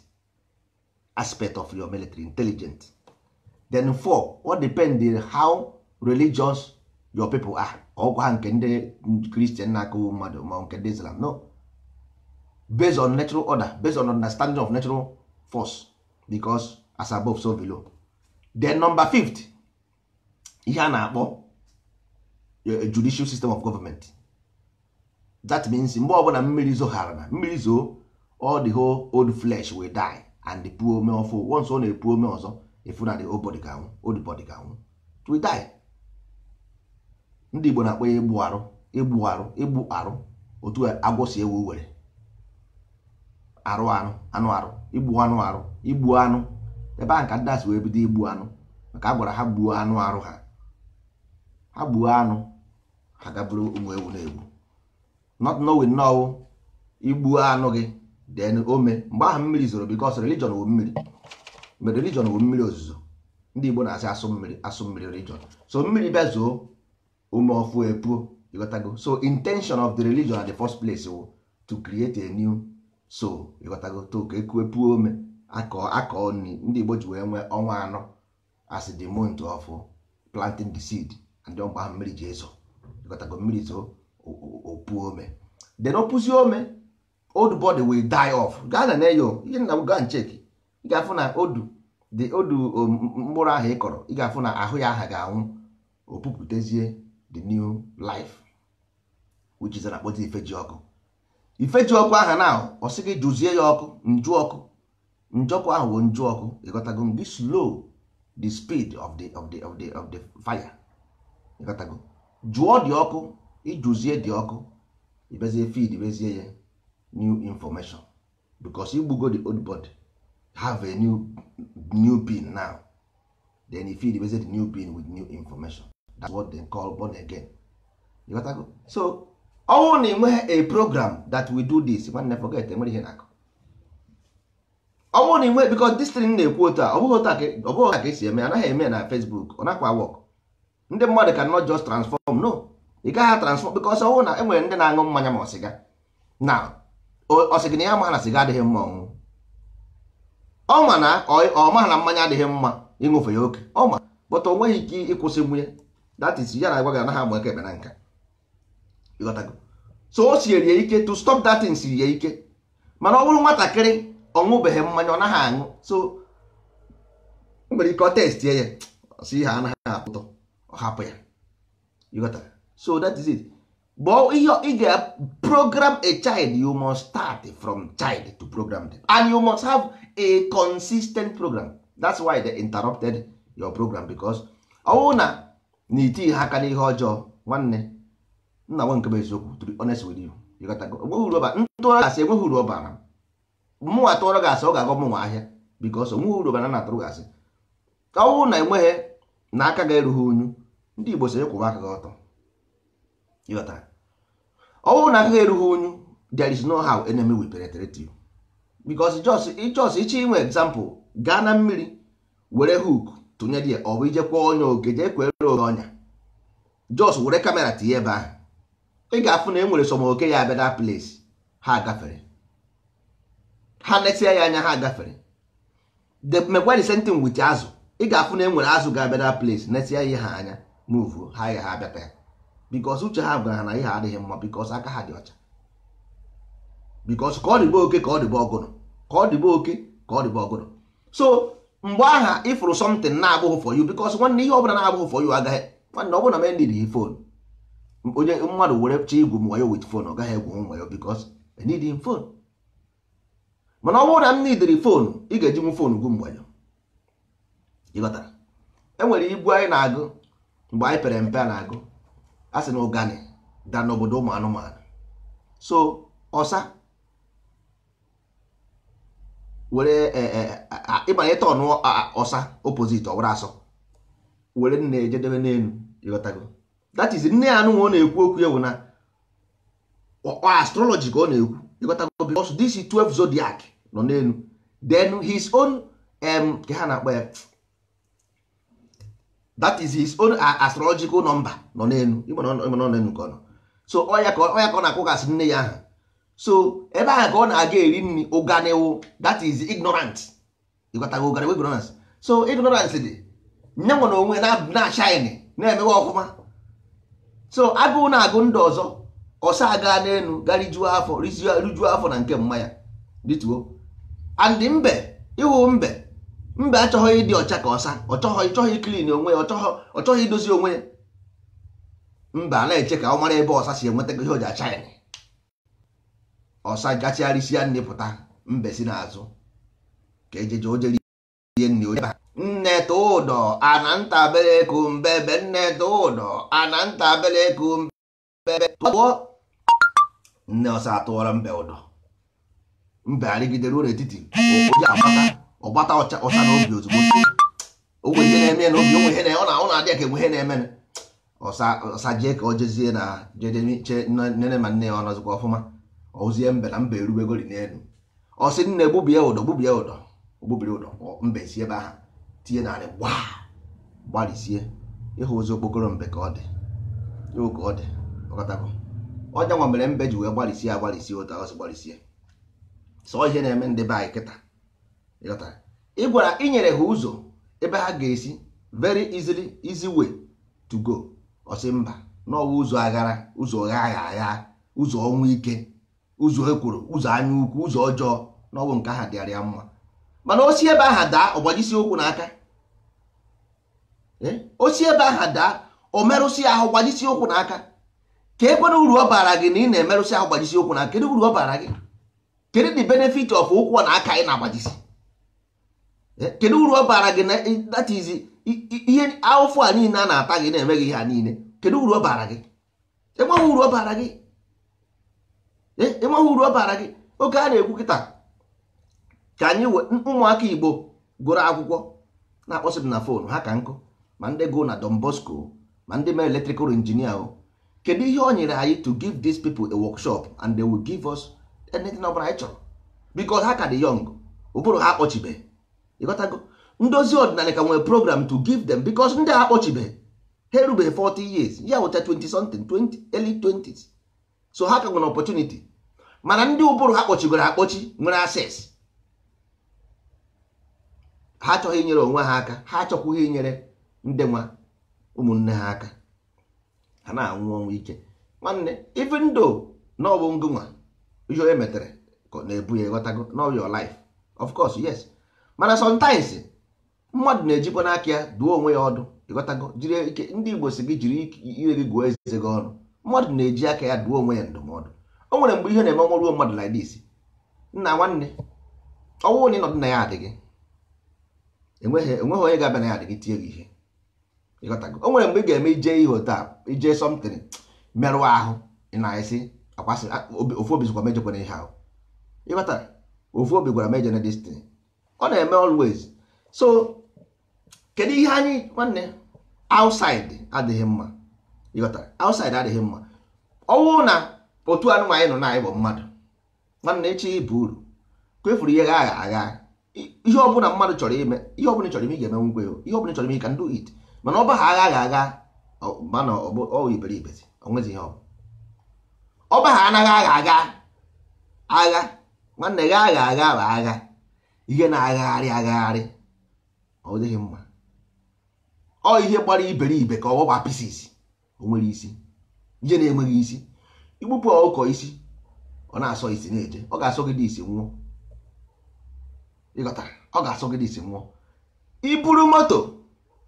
aspect of your military intelligent then four what depend how religious your people are ọgwa oh, ha nke ndị kristian na-akụ mmadụ ma nke ndị islam no based on natural order based on understanding of natural force because as above so below then number fifth ihe a na-akpọ eh, judicial system of government that means mgbe ọbụla mmiri zoghara na mmiri zoo all the whole old flesh will die and the puo ome ọfụ once ọ na-epu ome ọzọ efu na the old body ga-anwụ old body ga-anwụ it die ndị Igbo na-akpọ ya egbu arụ igbu arụ igbu arụ otu agwọ si ewu were arụ anụ anụ arụ igbu anụ arụ igbu anụ ebe ahụ ka ndị asị wee bido igbu anụ maka a gwara ha gbuo anụ arụ ha ha gbuo anụ ha gaburu ụmụ ewu na-egbu not knowing nọwụ igbuo anụ gị then ome mgbe ahụ mmiri zoro because religion wu mmiri mgbe religion wu mmiri ozuzo ndị Igbo na-asị asụ mmiri asụ mmiri religion so mmiri bịa ome ume ọfụ epuo ịghọtago so intention of the religion at the first place wu to create a new so ịghọtago to ka ekuwe puo ome akọ akọ nri ndị Igbo ji wee nwee ọnwa anọ as the month of planting the seed and ndị ahụ mmiri ji ezo ịghọtago mmiri zoo opuo ome then opuzi ome old body will die off gaa na neyo ihe nna m gaa nchek ị ga-afụ na odu the odu mkpụrụ ahụ ị kọrọ ị ga-afụ na ahụ ya aha ga-anwụ opupụtezie the new life which is na ife ji ọkụ Ife ji ọkụ aha na ọ sị gị jụzie ya ọkụ njụ ọkụ njọkụ ahụ bụ njụ ọkụ ịghọtago gị slow the speed of the of the of the of the fire ịghọtago jụọ dị ọkụ ijụzie dị ọkụ ibezie feed bezie ya new information because you go the old body have a new new pin now then you feed the new pin with new information that's what they call born again you got go? so ọnwụ na enweghị a program that we do this nwanne forget enwere ihe na-akụ ọnwụ na enwe because this thing na-ekwu otu a ọ bụghị otu a ka esi eme anaghị eme na Facebook ọ nakwa work ndị mmadụ can not just transform no ị gaghị transform because ọnwụ na enwere ndị na-aṅụ mmanya ma ọ sịga now ọ sị gị na ya ma na siga adịghị mma ọṅụṅụ ọ ma na ọ ma na mmanya adịghị mma ịṅụfe ya oke ọ ma bụta ọ nweghị ike ịkwụsị nwunye that is ya na-agwa gị anaghị ama eke ekpe na nka ịghọtago so o siere ya ike to stop that thing siri ya ike mana ọ bụrụ nwatakịrị ọ ṅụbeghị mmanya ọ naghị aṅụ so o nwere ike ọ test ya si ha anaghị apụtọ ọ hapụ ya ịghọtara so that is it. but ihe ị program a child you must start from child to program them and you must have a consistent program that's why they interrupted your program ọwụ na na ihe ọjọọ nwanne nna nke eziokwu honest with you you got go enweghị uru ọbara mụnwa tụọrọ gasị ọ ga-agọ mụnwa ahịa onweghị na enweghị na aka ga-erughị unyu ndị Igbo aka gị ọtọ ịghọtara ọ bụrụ na agụghị erughị onyu there is no how enemy will penetrate you because ịchọs ịchọ inwe example gaa na mmiri were hook tụnyere ya ọ bụ ijekwa onye oge jee kwere oge ọnya jos were kamera tinye ebe ahụ ị ga-afụ na e nwere sọm oke ya abịa na place ha gafere ha netia ya anya ha gafere the same thing wit azụ ị ga-afụ na e nwere azụ ga-abịa na place netia ya ha anya move ha ya ha abịata ya bikos uche ha gwara na ihe adịghị mma bikos aka ha dị ọcha bikos ka ọ dịbe oke ka ọ dịbe ọgụrụ ka ọ dịbe oke ka ọ dịbe ọgụrụ so mgbe aha ịfụrụ somtin na-abụghị for you bikos nwanne ihe ọbụla na-abụghị for you agaghị nwanne ọ bụla mendid hi fon onye mmadụ were chọọ igwu m wit fon ọ gaghị egwu m wayo bikos enidin fon mana ọ bụrụ na m nidiri fonu ị ga-eji m fonu gwu mgbanyo ịghọtara enwere igwu anyị na-agụ mgbe anyị pere mpe a na-agụ ha sị na ụgani da n'obodo ụmụ anụmanụ so ọsa were e, e, ịbanye tọn ọsa opposite ọwara asọ were nne ejedebe n'elu ịghọtago that is nne ya anụnwa ọ na-ekwu okwu ewu na astrology ka ọ na-ekwu ịghọtago because dc 12 zodiac nọ n'elu then his own ka ha na-akpọ ya that is his own uh, astrological number nọ n'elu nke ọ nọ so ọya ka ọ na-akwụgasị nne ya aha so ebe ahụ ka ọ na-aga eri nri ụganiwu that is ignorant ịgwatago ụganiwu ignorance so ignorance dị nye nwe na onwe na-ashine na-emewe ọfụma so agụụ na-agụ ndụ ọzọ ọsa aga n'elu garijuo afọ rijuo afọ na nke mmanya dịtuo and mbe ịhụ mbe mba achọghị ịdị ọcha ka ọsa ọchọghị chọghị klin onwe ya ọchọghị idozi onwe ya mba na-eche ka ọ mara ebe ọsa si enweta ihe o ji acha ya ọsa gachigharịsịa nne pụta mbe si n'azụ ka ejeje ojeri ihe nne onye nne tụ ụdọ ana nta ntabere kumbebe nne tụ ụdọ ana nta ntabere kumbebe tụọ nne ọsa atụọrọ mbe ụdọ mbe arịgidere ụlọ etiti onye agbata ọgbata ọcha ọcha n'obi ozugbo onwe ihe na-eme na obi onwe ihe na ọ na-adị na ka enwe ihe na-eme ọsa jee ka ọ jezie na jedeche nne ma nne ya ọ nọzikwa ọfụma ozie mbe na mba erubegori n'elu ọ sị nne gbubie ụdọ gbubie ụdọ ogbubiri ụdọ mbe si ebe ahụ tinye narị gba gbarisie ịhụ ozi okpokoro mbe ka ọ dị ịhụ ka ọ dị ọkọtago ọnya nwa mere mbe ji wee gbarịsie agbarịsie ụta ọsị gbarịsie sọ ihe na-eme ndị be anyị kịta ị gwara inyere ha ụzọ ebe ha ga-esi very easily easy way to go ọsị mba n'ọwa ụzọ aghara ụzọ gha agha agha ụzọ ọnwụ ike ụzọ ekworo ụzọ anya ukwu ụzọ ọjọọ n'ọwụ nke aha dịara ya mma mana osi ebe aha daa ọgbajisi ụkwụ n'aka eh? osi ebe aha daa o merụsi ahụ gbajisi ụkwụ n'aka ka ebe na uru ọ baara gị na ị na emerụsi ahụ gbajisi ụkwụ n'aka kedu uru ọ baara gị kedu the benefit of ụkwụ na aka ị na-agbajisi Eh, kedu uru ọ bara gị that is ihe awụfụ a niile a na-ata gị na-eme gị ha niile kedu uru ọ bara gị enweghị uru ọ bara gị eh, enweghị uru ọ bara gị oge a na-ekwu kịta ka anyị ụmụaka igbo gụrụ akwụkwọ na-akpọsị m na fon ha ka nkụ ma ndị gụ na Don Bosco ma ndị mere electrical injinia o kedu ihe ọ nyere anyị to give these people a workshop and they will give us anything ọ bụla anyị chọrọ because ha ka dị young ụbụrụ ha akpọchibeghị ịghọtago ndozi ọdịnala ka nwere program to give them because ndị a akpọchibeghị ha erubeghị 40 years ya wụcha 20 something 20 early 20s so ha ka nwere opportunity mana ndị ụbụrụ ha kpọchigoro akpọchi nwere access ha achọghị inyere onwe ha aka ha achọkwughị inyere ndị nwa ụmụnne ha aka ha na-anwụ ọnwụ ike nwanne even though na ọ ngụnwa ihe onye metere na-ebu ya ịghọtago na your life of course yes mana sometimes mmadụ na-ejikwa n'aka ya duo onwe ya ọdụ ịghọtago jiri ike ndị igbo si gị jiri ire gị gụọ eze gị ọnụ mmadụ na-eji aka ya duo onwe ya ndụmọdụ o nwere mgbe ihe na-eme ọnwụ mmadụ like this nna nwanne ọnwụ na ịnọdụ na ya adịghị enweghị onye ga-abịa na ya adịghị tie gị ihe ịghọtago o nwere mgbe ị ga-eme ije ihe otu ije something merụọ ahụ na-esi akwasị ofu obi zikwa mejọkwana ihe ahụ ịghọtara ofu obi gwara mejọ na destin ọ na-eme always so kedu ihe anyị nwanne outside adịghị mma ịghọtara outside adịghị mma ọnwụ na otu anụmanụ anyị nọ na anyị bụ mmadụ nwanne echi ibu uru kwefuru ihe agha agha ihe ọbụla mmadụ chọrọ ime ihe ọbụla chọrọ ime ị ga-eme ngwe ihe ọbụla chọrọ ime ị ka ndụ it mana ọba ha agha agha mana ọ iberibe onwezi ihe ọba ha anaghị agha agha agha nwanne gị agha agha bụ agha ihe na-agagharị agagharị ọ dịghị mma ọ ihe gbara iberibe ka ọ gbaa pieces o nwere isi ihe na-enweghị isi igbupụ ọkọ isi ọ na-asọ isi na-eje ọ ga-asọ gị dị isi nwụọ ịghọtara ọ ga-asọ gị dị isi nwụọ iburu moto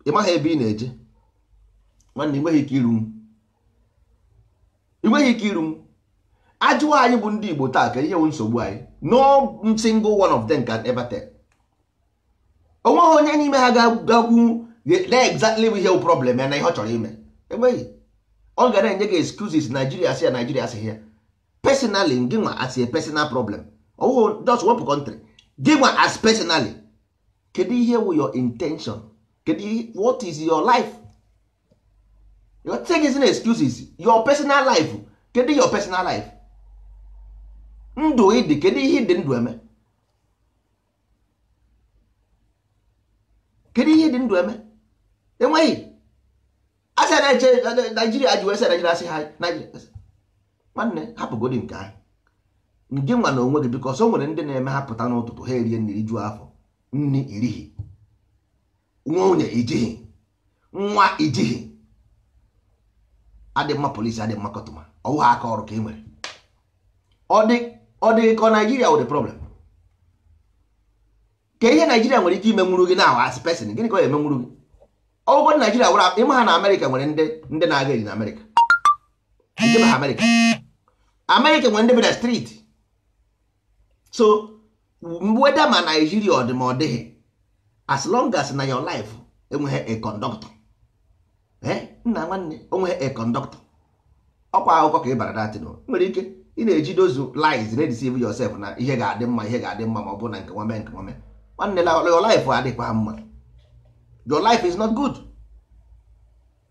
ị maghị ebe ị na-eje nwanne ị nweghị ike iru ajụwa anyị bụ ndị Igbo taa ka ihe bụ nsogbu anyị no single one of them can ever tell onweghị onye n'ime ha ga-agwụ exactly ihe problem ya na ihe ọ chọrọ ime enweghị ọ ga na-enye gị excuses Nigeria sị ya Nigeria sị ya personally gị nwa as a personal problem Oh, just wepụ country gị nwa as personally kedu ihe wụ your intention kedu what is your life your thing is excuses your personal life kedu your personal life ndụ ịdị kedu ihe dị ndụ eme kedu ihe dị ndụ eme enweghị asị na-eche naijiria ji wee sị naijiria asị ha nwanne hapụgodi nke ahụ nke nwa na onwe gị biko ọsọ nwere ndị na-eme hapụta pụta n'ụtụtụ ha erie nri juo afọ nri irighi nwunye ijighi nwa ijighi adị mma polisi adị mma kọtụma ọwụ aka ọrụ ka e nwere ọ dị ọ dị ka naijiria wụ the problem ka ihe naijiria nwere ike ime imenwuru gị na as pesin, gịnị ka ọ emenwuru gị ọgwụgwọ naijiria wụrụ ịma ha na amerịka nwere ndị na-aga eri na amerịka Amerika. Amerika nwere ndị bi na striti. so weda ma naijiria ọ dị ma ọ dịghị as long as na your life enweghị a conductor eh? nna nwanne onweghị a conductor ọkwa akụkọ ka ị bara datin nwere ike ị na-ejido ozu lies na-edeceive yourself na ihe ga-adị mma ihe ga-adị mma ma ọ bụ na nke nwame nke nwame nwanne your life adịkwa mma your life is not good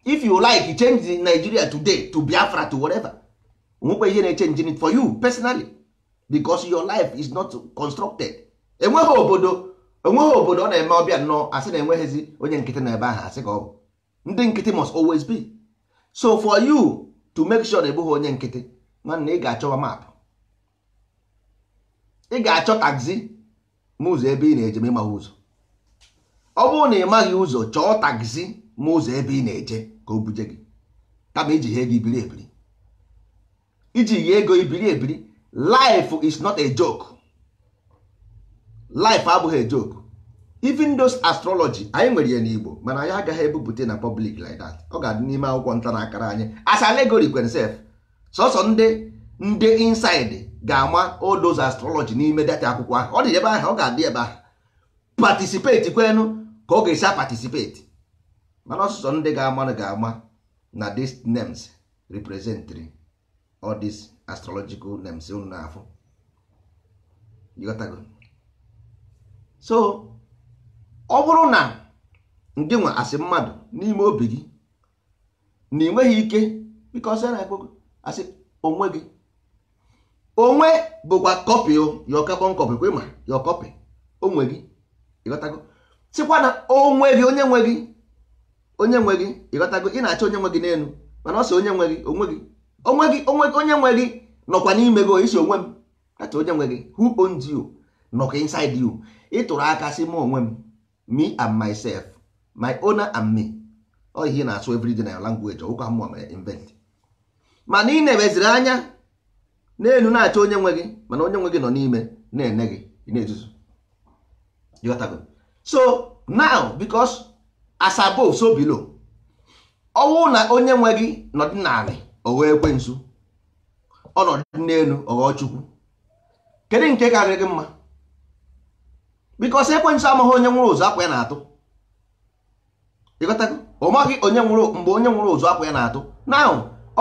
if you like change Nigeria today to Biafra to whatever onwekwa ihe na it for you personally because your life is not constructed enweghị obodo enweghị obodo ọ na-eme ọbịa nnọọ asị na enweghịzi onye nkịtị na ebe ahụ asị ka ọ bụ ndị nkịtị must always be so for you to make sure na ebughị onye nkịtị nwanne ị ga-achọwa maapụ ị ga-achọ taxi ma ụzọ ebe ị na-eje ma ịmaghị ụzọ ọ bụrụ na ị maghị ụzọ chọọ taxi ma ụzọ ebe ị na-eje ka o buje gị kama iji ihe ego ibiri ebiri iji ihe ego ibiri ebiri life is not a joke life abụghị a joke even those astrology anyị nwere ya n'Igbo mana anyị agaghị ebupụta na public like that ọ ga-adị n'ime akwụkwọ nta na akara anyị asa allegory kwenself sọsọ ndị ndị inside ga-ama odoz astrology n'ime data akwụkwọ ahụ ọ dị ebe ahụ ọ ga-adị ebe ahụ patisipeti kwenu ka ọ ga-esi patisipeti mana ọsụsọ ndị ga-ama ga-ama na these names represent all these astrological names unu na-afụ so ọ bụrụ na ndị nwa asị mmadụ n'ime obi gị na ị nweghị ike bikọ na asị onwe gị onwe bụkwa kọpị ya ọkakpọ kọpị kwe ma ya kọpị, onwe gị ịghọtago sịkwa na onwe gị onye nwe gị onye nwe gị ịghọtago ị na-achọ onye nwe gị n'elu mana ọ sị onye nwe gị onwe gị onwe gị onwe gị onye nwe gị nọkwa n'ime gị isi onwe m kacha onye nwe gị who owns you nọkwa inside you tụrụ aka sị m onwe m me and myself my owner and me ọ ihe na-asụ everyday na language ọgwụkwa mmụọ mere invent mana ị na-eweziri anya n'elu na-achọ onye nwe gị mana onye nwe gị nọ n'ime na-ene gị na-ezuzu so now because Asabo so below ọnwụ na onye nwe gị nọdị n'ala o wee ekwensu ọnọdụ n'elu ọ ghọọ chukwu kedu nke karịrị gị mma bikos ekwensu amaghị onye nwụrụ ụzọ akwa ya na-atụ ịghọtago ọ maghị onye nwụrụ mgbe onye nwụrụ ụzọ akwa ya na-atụ now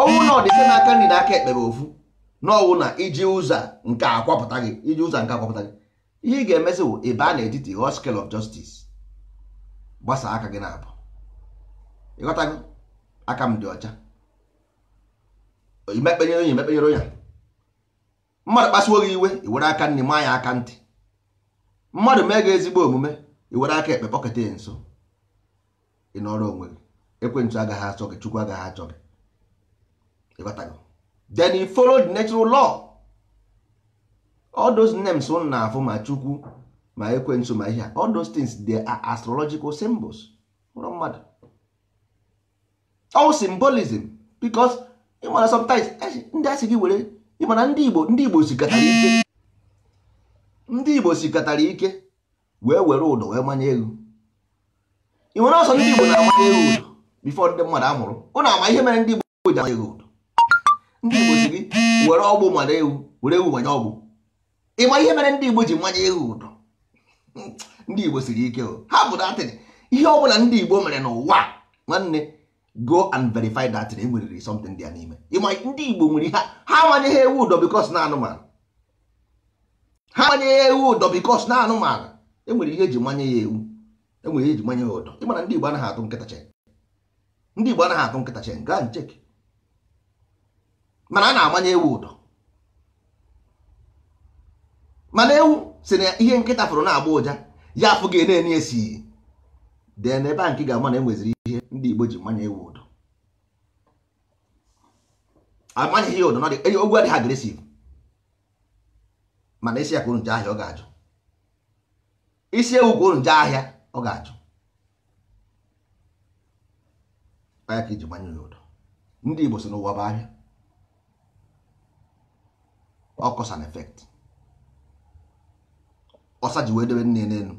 ọnwụ na ọdịse n'aka nri na aka ekpe bụ ofu n'ọnwụ na iji ụzọ nke akwapụta gị iji ụzọ nke akwapụta gị ihe ị ga-emezi bụ ebe a na-etiti whole scale of justice gbasa aka gị na-abụ gị aka m dị ọcha imekpenyere onye emekpenyere onye mmadụ kpasuo gị iwe iwere aka nri maa ya aka ntị mmadụ mee gị ezigbo omume iwere aka ekpe kpọketa ya nso ị nọrọ onwe gị ekwentị agaghị achọ gị chukwu agaghị achọ gị then he follow the natural law all those names unu na-afụ ma chukwu ma ekwensu ma ihe all those things they are astrological symbols ụlọ mmadụ all symbolism because ịmana sometimes e ndị asị gị were ịmana ndị igbo ndị igbo sikatara ike ndị igbo sikatara ike wee were ụdọ wee manye elu ị nwere ọsọ ndị igbo na-amanye elu ụdọ before ndị mmadụ amụrụ. mụrụ ụnụ ama ihe mere ndị igbo ji amanye elu ụdọ ndị igbo si gị were ọgbụ mara ewu were ewu manye ọgbụ ịma ihe mere ndị igbo ji mmanya ewu ụdọ hmm, ndị igbo siri ike ha bụ datịn ihe ọbụla ndị igbo mere n'ụwa nwanne go and verify datịn enweriri something dị ya n'ime ịma ndị igbo nwere ha ha manyeghị ewu ụdọ bikos na anụmanụ ha ya ewu ụdọ bikos na anụmanụ enwere ihe eji manye ya ewu enwere ihe eji manye ya ụdọ ịmana ndị igbo anaghị atụ nkịta chen ndị igbo anaghị atụ nkịta chen gaa ncheki mana a na-agbanye ewu ụdọ mana ewu si na ihe nkịta fụrụ na-agba ụja ya afụ gị na-enye esi dee na ebe a nke ga-ama na e nweziri ihe ndị Igbo ji mmanya ewu ụdọ amanyeghị ya e, ụdọ ogwu adịghị agresiv mana isi ya kwuru nje ahịa ọ ga-ajụ isi ewu kwuru nje ahịa ọ ga-ajụ ya ka iji mmanya ya ụdọ ndị Igbo si n'ụwa bụ ahịa ọ cause and effect ọsa ji wee debe nne n'elu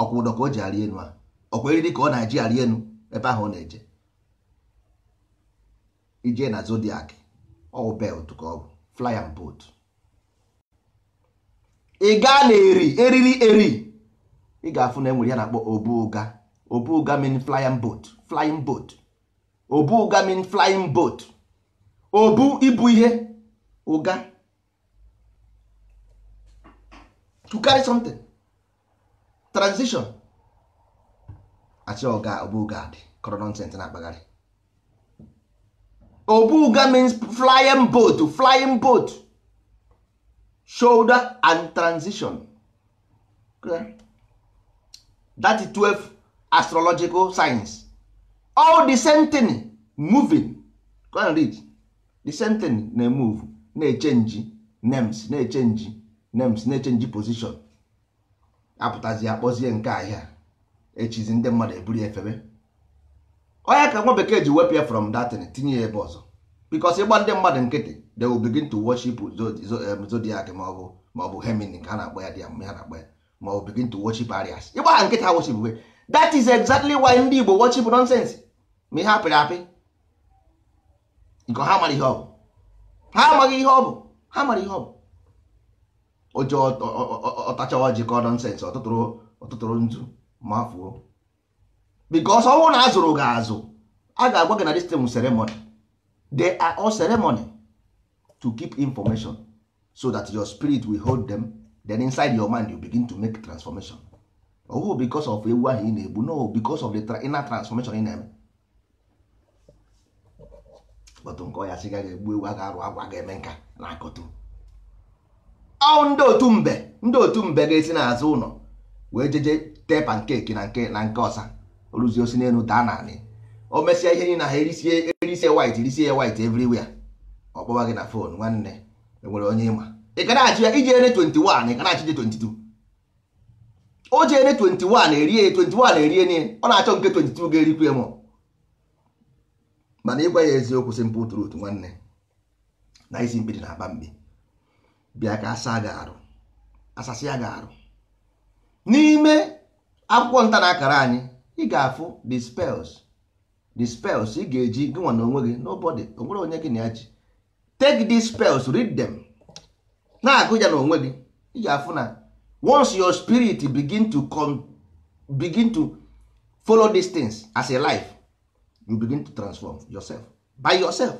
ọkwa ụdọ ka o ji arị enu a ọkwa eriri ka ọ na-eji arị enu ebe ahụ ọ na-eje ije na zodiac ọwụ belt ka ọ bụ fly and boat ị gaa na eri eriri eri ị ga-afụ na enwere ya na-akpọ obu ụga obu ụga mean flying boat flying boat obu ụga mean flying boat obu ibu ihe ụga to carry something transition asị ọga obuga dị kọrọ nonsens na-akpagharị obuga means flying boat flying boat shoulder and transition that is 12 astrological signs all the same thing moving go and read the same thing na-emove na-echenji names na-echenji names na-echenji position apụtazi akpọzie nke ahịa echizi ndị mmadụ eburu efebe onye ka nwa bekee ji wepụ ya from datin tinye ya ebe ọzọ because ịgba ndị mmadụ nkịtị they will begin to worship zodiac maọbụ maọbụ hemini ka ha na-akpọ ya dị ya mgbe ha na-akpọ ya ma ọ begin to worship arias ịgba ha nkịtị ha worship we that is exactly why ndị igbo worship nonsense ma ihe apịrị apị nke ha mara ihe ọ bụ ha amaghị ihe ọ bụ ha mara ihe ọ bụ oje ọtachawa jikọ nọnsensị ọtụtụrụ nzu mafuo bikos ọnwụ na azụrụ gị azụ a ga-agwa gị na this thing ceremony they are all ceremony to keep information so that your spirit will hold them then inside your mind you begin to make transformation ọwụ bikos of ewu ahụ ị na-egbu no bikos of the inner transformation ị na-eme bọtụ nkọ ya sị gaghị egbu ewu a ga-arụ agwa ga-eme nka na akọtu ọ ndị otu mbe ndị otu mbe ga-esi n'azụ ụlọ wee jeje tee pankeki na nke na nke ọsa rụzie osi n'elu daa naanị o mesịa ihe niile ha erisie erisie white erisie white everywhere ọ kpọwa gị na fon nwanne enwere onye ịma ị ka na-achị ya ije ene 21 ị ka na-achị je 22 o je ene 21 erie 21 erie niile ọ na-achọ nke 22 ga-erikwu m mana ịgwa ya eziokwu simple truth nwanne na isi mkpidi na-aba mbi bịa ka asa gị arụ asasi aga arụ n'ime akwụkwọ nta na akara anyị ị ga-afụ the spells the spells ị ga-eji gị nwa na onwe gị nobody onwere onye gị na ya ji take these spells read them na-agụ ya gị ị ga-afụ na once your spirit begin to come, begin to follow these things as a life you begin to transform yourself by yourself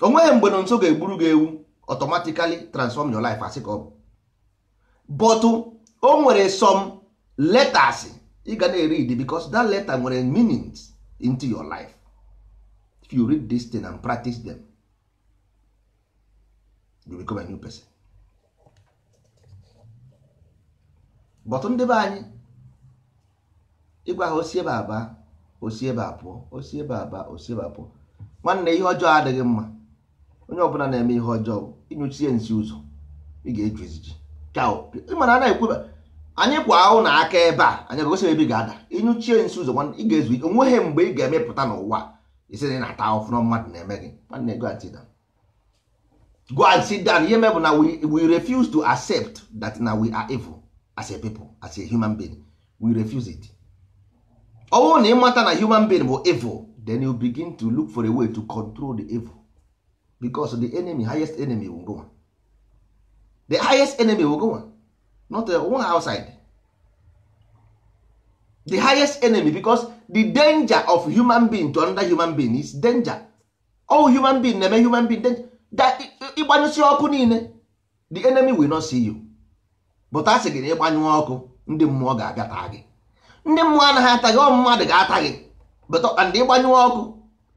onweghị mgbe na nso ga-egburu gị ewu automatically transform your life as ka ọ bụ but oh, o nwere some letters ị ga na-read because that letter nwere meanings into your life if you read this thing and practice them you become a new person but ndị be anyị ịgwa ha osi ebe aba osi ebe apụọ osi ebe aba osi ebe nwanne ihe ọjọọ adịghị mma onye ọbụla na-eme ihe ọjọọ ịnyụchie nsi ụzọ ị ga-eju eziji mana a na-ekwu anyị kwa ahụ na aka ebe a anyị gosi ebe ị ga-ada ịnyụchie nsi ụzọ ị ga-ezu ike onweghị mgbe ị ga-emepụta n'ụwa isi na na-ata ọfụma mmadụ na-eme gị nwanne go and sit down go and sit down ihe mebụ na we refuse to accept that na we are evil as a people as a human being we refuse it ọ bụrụ na ịmata na human being bụ evil then you begin to look for a way to control the evil because the enemy highest enemy will go the highest enemy will go not the uh, one outside the highest enemy because the danger of human being to another human being is danger all human being na-eme human being danger that ịgbanyụsi ọkụ niile the enemy will not see you but asị gị na ịgbanyụ ọkụ ndị mmụọ ga-abịa taa gị ndị mmụọ anaghị ata gị ọ mmadụ ga-ata gị but and ịgbanyụ ọkụ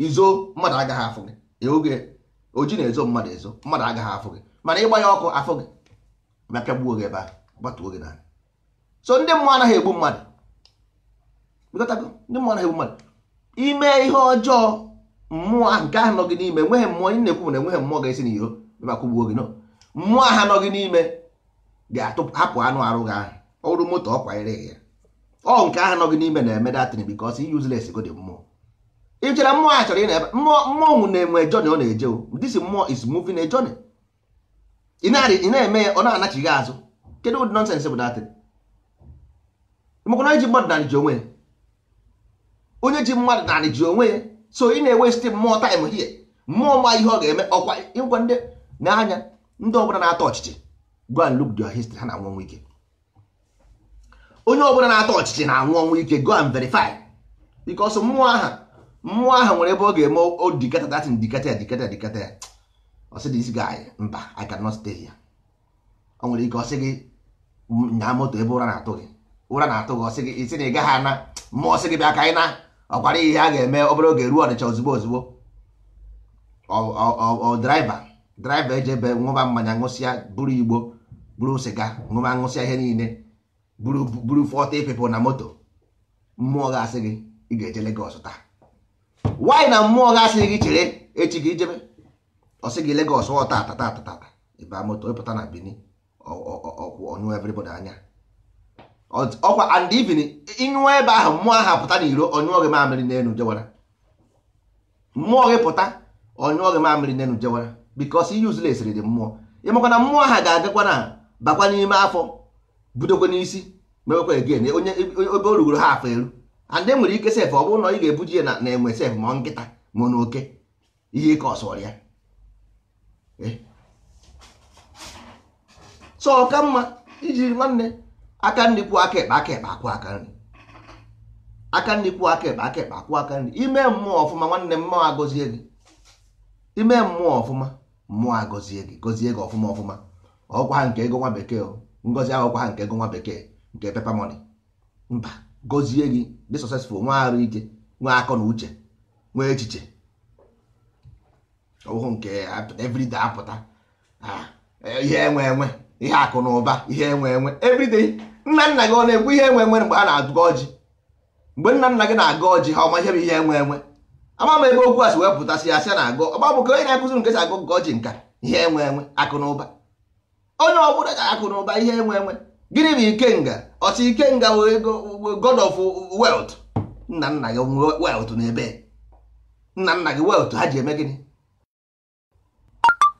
izo mmadụ agaghị afụ gị oge oji na-ezo mmadụ ezo mmadụ agaghị afụ gị mana ịgbanye ọkụ afụ gị bịa pịagbuo gị ebe a gbatuo gị n'ala so ndị mmụọ anaghị egbu mmadụ ndị mmụọ anaghị egbu mmadụ ime ihe ọjọọ mmụọ nke ahụ nọ gị n'ime enweghị mmụọ ị na-ekwu na enweghị mmụọ ga-esi n'iro bịa kwụgbuo gị no mmụọ aha nọ gị n'ime ga-hapụ anụ arụ gị ahụ ọrụ moto ọ kwanyere ya ọ nke ahụ nọ gị n'ime na-eme datin bikos i useless go dị mmụọ ị chere mmụọ a chọrọ ị na-ebe mmụọ na-enwe jọni ọ na-eje this mmụọ is moving a jọnị ị na-eme ya ọ na-anachighị azụ kedu ụdị nọnsens bụ datịrị mekwana ji mmadụ narị ji onwe ya onye ji mmadụ narị ji onwe ya so ị na-ewesti mmụọ taịm hie mmụọ ma ihe ọ ga-eme ọkwa ịgwa ndị n'anya ndị ọbụla na-atọ ọchịchị go and look their history ha na anwụ ọnwụ ike onye ọbụla na-atọ ọchịchị na anwụ ọnwụ ike go and verify mmụọ aha mmụọ ahụ nwere ebe ọ ga-eme odikata datin dikata ya dikata dikata ya ọsị dị guy mba i cannot stay here ọ nwere ike ọsị gị nyaa moto ebe ụra na-atụ gị ụra na-atụ gị ọsị gị isi na ị gaghị ana mmụọ ọsị gị bịa ka anyị na ọkwara ihe a ga-eme obere oge ruo ọnịcha ozugbo ozugbo ọ draiva draiva eji ebe ṅụba mmanya ṅụsịa buru igbo buru sịga ṅụba ṅụsịa ihe niile buru buru fọta people na moto mmụọ ga-asị gị ị ga-eje Lagos taa nwaanyị na mmụọ ga asịghị gị chere echi gị jebe ọsị gị Lagos ọ tata tata tata ịba moto ịpụta na Benin ọkwụ ọnyụ everybody anya ọkwa and even ịnyụọ ebe ahụ mmụọ ahụ pụta n'iro ọnyụọ gị mamịrị n'elu jewara mmụọ gị pụta ọnyụọ gị mamịrị n'elu jewara because useless dị mmụọ ịmakwa na mmụọ ahụ ga-agakwa na bakwa n'ime afọ budokwa n'isi mewekwa again onye ebe o rugoro ha afọ elu and nwere ike sef ọ bụrụ na ị ga-ebuji ya na enwe sef ma nkịta ma na oke ihe ike ọsọrọ ya so ọ mma ijiri nwanne aka nri kwuo aka ekpe aka ekpe akwụ aka nri aka nri kwuo aka ekpe aka ekpe akwụ aka nri ime mmụọ ọfụma nwanne mmụọ agọzie gị ime mmụọ ọfụma mmụọ agọzie gị gọzie gị ọfụma ọfụma ọgwa ha nke ego nwa bekee ngọzi ahụkwa ha nke ego nwa bekee nke pepa moni mba gọzie gị dị successful nwe arụ ike nwe akọ na uche nwe echiche ọhụụ nke everyday apụta ihe enwe enwe ihe akụ na ụba ihe enwe enwe everyday nna nna gị ọ na-ekwu ihe enwe enwe mgbe a na-agụ ọjị mgbe nna nna gị na-agụ ọjị ha ọma ihe bụ ihe enwe enwe ama m ebe okwu a si wee pụtasị ya sị na agụ ọgba bụ ka onye na-akụziri nke si agụ nke ọjị nka ihe enwe enwe akụ na ụba onye ọ bụla ga akụ na ụba ihe enwe enwe gịnị bụ ikenga ọchị ikenga god of wealth nna nna gị wealth n'ebe nna nna gị wealth ha ji eme gịnị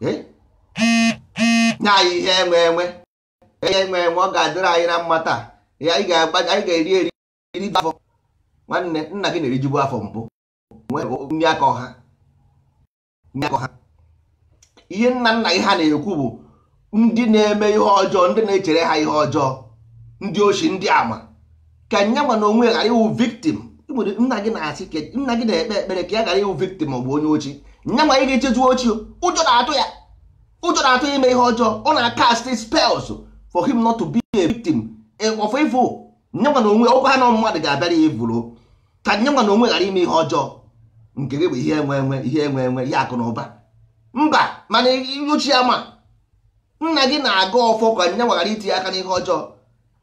eh? nye anyị ihe enwe enwe ihe enwe enwe ọ ga-adịrị anyị na mma taa anyị ga-eri eri iri afọ nwanne nna gị na-erijibu afọ mbụ nri aka ọha ihe nna nna gị ha na-ekwu bụ ndị na-eme ihe ọjọọ ndị na-echere ha ihe ọjọọ ndị ochi ndị ama ka nye nwa na onwe ghara ịwụ victim nna gị na-asị nna gị na-ekpe ekpere ka ya ghara ịwụ victim ọ bụ onye ochi nye nwa ị ga-echezu ochi ụjọ na-atụ ya ụjọ na-atụ ya ime ihe ọjọọ ọ na akasti spells for him not to be a victim eh, of evil nye nwa na onwe ọkwa ha na mmadụ ga-abịara ya ka nye nwa na onwe ghara ime ihe ọjọọ nke gị bụ ihe enwe enwe ihe enwe enwe ihe akụ na ụba mba mana ochi ya ma nna gị na-aga ọfọ ka nne nwaghara itinye aka n'ihe ọjọọ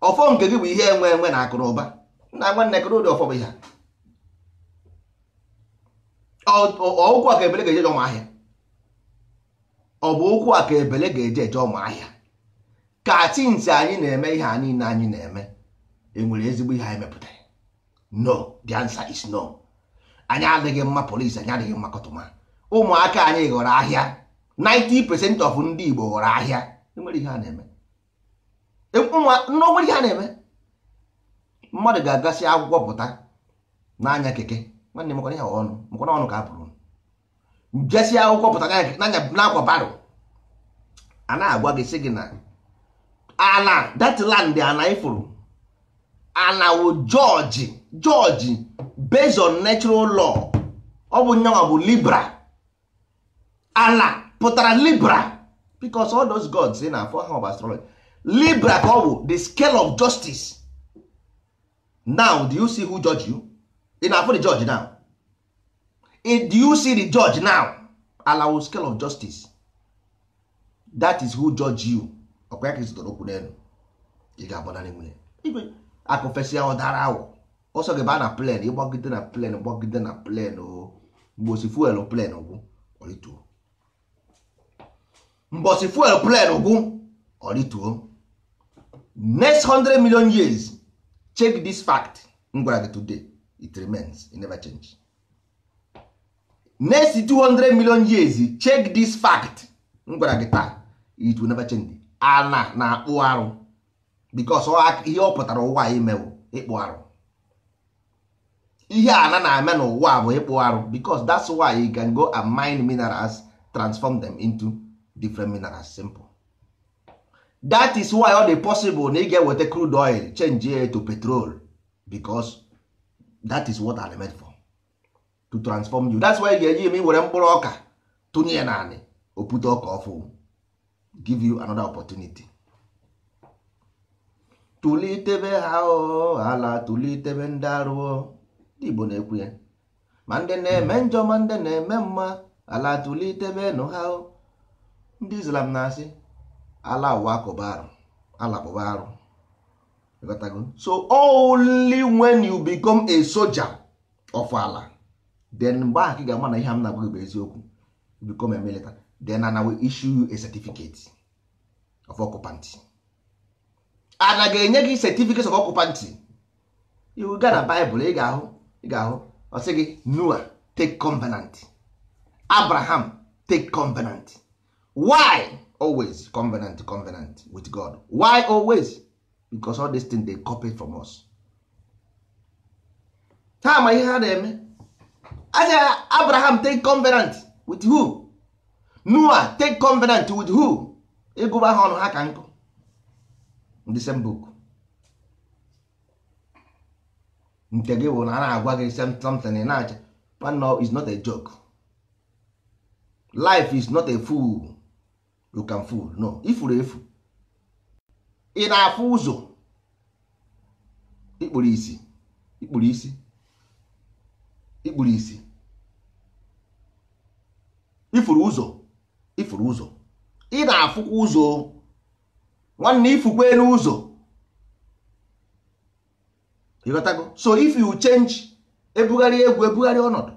ọfọ nke gị bụ ihe enwe enwe na akụrụba nna nwanne kere ụdị ọfọ bụ ihe ụkwụ a ka ebele ga-eje ụmụ ahịa ọ bụ ụkwụ a ka ebele ga-eje eje ụmụ ka tinsi anyị na-eme ihe a niile anyị na-eme enwere ezigbo ihe anyị mepụtara no the answer is no anyị adịghị mma polisi anyị adịghị mma kọtụma ụmụaka anyị ghọrọ ahịa 90% of ndị Igbo ghọrọ ahịa enwere ihe a na-eme e, n'onwere ihe a na-eme mmadụ ga-agasị akwụkwọ pụta n'anya keke nwanne mekwana ihe ọnụ mekwana ọnụ ka a pụrụ jesị akwụkwọ pụta n'akwa baro a na-agwa gị sị gị na Ala datland ana ifuru ana wo jọji jọji based on natural law ọ bụ nyanwa bụ libra ala pụtara libra because all those gods ị na-afọ ha of astrology libra ka ọ bụ the scale of justice now do you see who judge you ị na-afọ the judge now do you see the judge now allow scale of justice that is who judge you ọkwa ya ka ịzụtara okwu n'elu ị ga-agbanarị nwunye akụfesịa ọdara awọ ọsọ gị baa na plen ịgbagide na plen gbagide na plen o mgbe osi fuel plen gwụ ọrịtuo mbọsị fuel plen gwụ orituo next 100 million years check this fact m gị today it remains it never change next 200 million years check this fact m gwara taa it will never change ana na-akpụ arụ because ihe ọ pụtara ụwa imewo ịkpụ arụ ihe ana na-eme n'ụwa bụ ịkpụ arụ because that's why you can go and mine minerals transform them into different minerals simple that is why ọ dị possible na ị ga-eweta crude oil change ya to petrol because that is what I'm made for to transform you that's why ị ga-eji eme were mkpụrụ ọka tụnye ya naanị opute ọka ọfụ give you another opportunity tụlitebe ha ala tụlitebe ndị arụọ ndị Igbo na-ekwu ya ma ndị na-eme njọ hmm. ma ndị na-eme mma ala tụlitebe nụ ha o ndị islam na-asị ala ụwa akụba arụ alakpụba arụ so only when you become a soldier of ala then mgbe ahụ ị ga-ama na ihe m na-agwa gị bụ eziokwu become a military then ana we issue you a certificate of occupancy ana ga-enye gị certificate of occupant iwu ga na Bible ị ga-ahụ ị ga-ahụ ọ sị gị Noah take covenant Abraham take covenant why always covenant covenant with god why always because all these things they copy from us ha ma ihe ha na-eme aja abraham take covenant with who noah take covenant with who ịgụba ha ọnụ ha ka nkụ the same book nke gị bụ na a na-agwa gị something ị na-acha is not a joke life is not a fool you can fool no ifuru efu ị na-afụ ụzọ ikpuru isi ikpuru isi ikpuru isi ifuru ụzọ ifuru ụzọ ị na-afụkwa ụzọ nwanne ifukwa elu ụzọ so if you change ebugharị egwu ebugharị ọnọdụ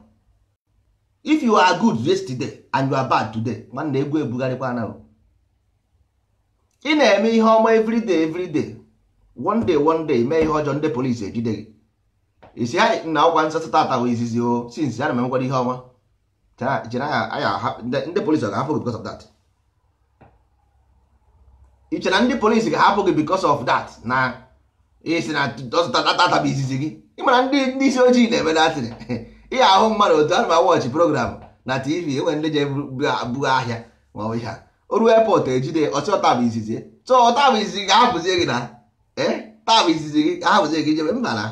if you are good yesterday and you are bad today nwanne egwu ebugharịkwa anaghị ị na-eme ihe ọma everyday everyday one day one day mee ihe ọjọọ ndị polisi ejide gị isi ha na ọkwa nsatọ tata bụ izizi o since "Ana m emekwara ihe ọma ndị polisi ọ ga-ahapụ gị because of that ị chere na ndị polisi ga-ahapụ gị because of that na isi na tata bụ izizi gị ị mara ndị isi ojii na-eme datịrị ihe ahụ mmadụ otu anụ ma wọchị program na tv enwere ndị je buga ahịa ma ọ bụ ihe a oru epọt ejide ọsị tabụ izizi so tabụ izizi gị ahapụzie gị na e tabụ izizi gị ahapụzie gị jebe mba na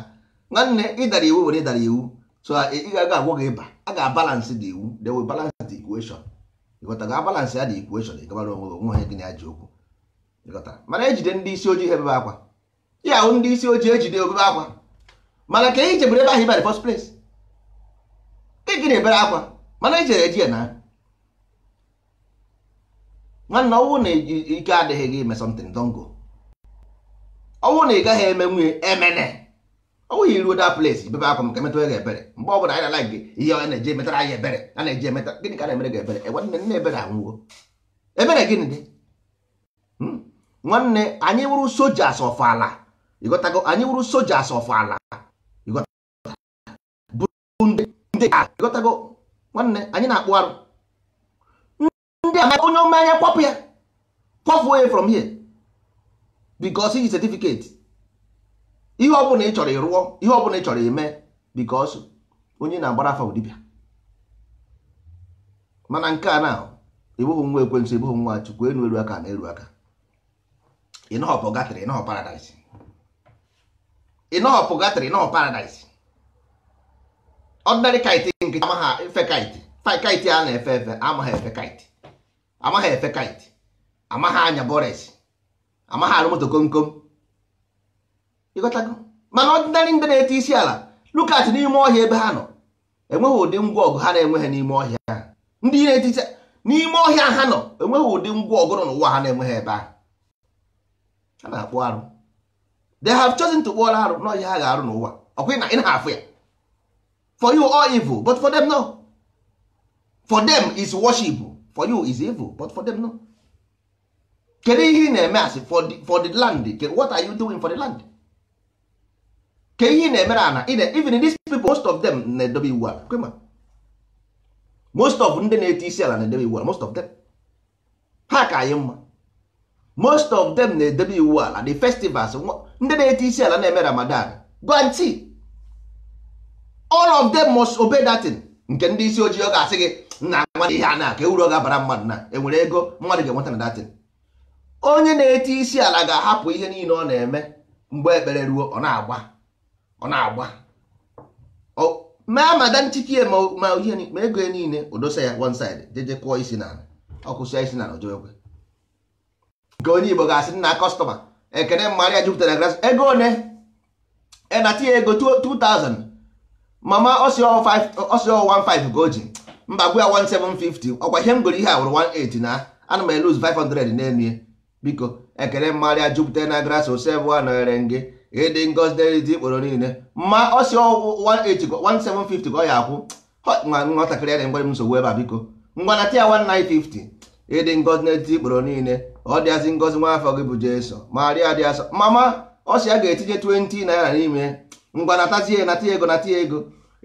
nwanne ịdara iwu were ịdara iwu so ị ga agwọ gị ịba a ga-abalansị dị iwu they will balance the equation ịghọtara abalansị ya dị equation ịgabara onwe onwe ha gị na ji okwu ịghọtara mana ejide ndị isi ojii ha ebebe akwa ya hụ ndị isi ojii ejide obebe akwa mana ka ị e jebere ebe ahụ ibe the first ị e gị na-ebere akwa mana ejere eji ya na nwanna ọnwụ na ike adịghị gị ime something don go ọnwụ na ị gaghị eme nwunye emene ọnwụ ya iruo that place bebe akwa maka emetụrụ gị ebere mgbe ọ bụla anyị na-ala gị ihe ọ na-eji emetara anyị ebere a na-eji emeta gịnị ka na-emere gị ebere ewe nne nne ebere anwụwo ebere gịnị dị hmm? nwanne anyị wụrụ soja asọfọ ala ịghọtago anyị wụrụ soja asọfọ ala ịghọtago nwanne anyị na-akpụ arụ ndị a onye omenya kwapụ ya Kwapụ onye from here because iji certificate ihe ọbụla ị chọrọ ịrụọ ihe ọbụla ị chọrọ ime because onye na-agbara afa dibịa mana nke a na ebughị nwa ekwensụ ebughị nwa chukwu enu eru aka na elu aka ịnọhọpụ gatịrị ịnọhọ paradise ịnọhọpụ gatịrị ịnọhọ paradise ọdịnarị kaịtị nke amaghị efe kaịtị kaịtị a na-efe efe amaghị efe kaịtị amaghị efe kite amaghị anya bọres amaghị arụ moto kom kom ịghọtago mana ọdịnarị ndị na eti isi ala lukat n'ime ọhịa ebe ha nọ enweghị ụdị ngwa ọgụ ha na-enweghị n'ime ọhịa ndị na eti isi n'ime ọhịa ha nọ enweghị ụdị ngwa ọgụ nọ n'ụwa ha na-enweghị ebe ahụ ha na-akpụ arụ they have chosen to kpụọrọ arụ n'ọhịa ha ga-arụ n'ụwa ọkwa na ị na-afụ ya for you all evil but for them no for them is worship for you is evil but for them no kedu ihe ị na-eme asị for the land what are you doing for the land ke ihe ị na-emere ana even these people most of them na-edobe iwu ala kwema most of ndị na-eti isi ala na-edobe iwu ala most of them ha ka anyị mma most of them na-edobe iwu ala the festivals ndị na-eti isi ala na-eme ramadan guarantee all of them must obey that thing nke ndị isi ojii ọ ga-asị gị nna nwa ihe a na-aka e uru ga-abara mmadụ na enwere ego mmadụ ga-enweta na datin onye na-eti isi ala ga-ahapụ ihe niile ọ na-eme mgbe ekpere ruo ọ na-agba ọ na-agba Mee mada nchikie ma ihe ma ego ya niile odosa ya one side jeje kụọ isi n'ala ọkụsịa isi n'ala ojoekwe nke onye Igbo ga-asị nna kọstọma ekene mmadụ ya jupụtara gras ego one ena tinye ego 2000 mama ọsịọ 15 ka o ji mba gwa ya 1750 ọkwa ihe m goro ihe a wụrụ 18 na ana m eluz 500 n'elu biko ekele mmarịa jupụta na gras osev nọnyere gị ịdị ngozi dị ikporo niile ma ọ si 1750 ka ọ ya akwụ nwatakịrị ya na-enwere m nsogbu ebe a biko ngwana tia 1950 ịdị ngozi n'etiti ikporo niile ọ dịazị ngozi nwa afọ gị bụ jeso marịa dị asọ mama ọ si ya ga-etinye 20 naira n'ime ngwa natazie nata ego nata ego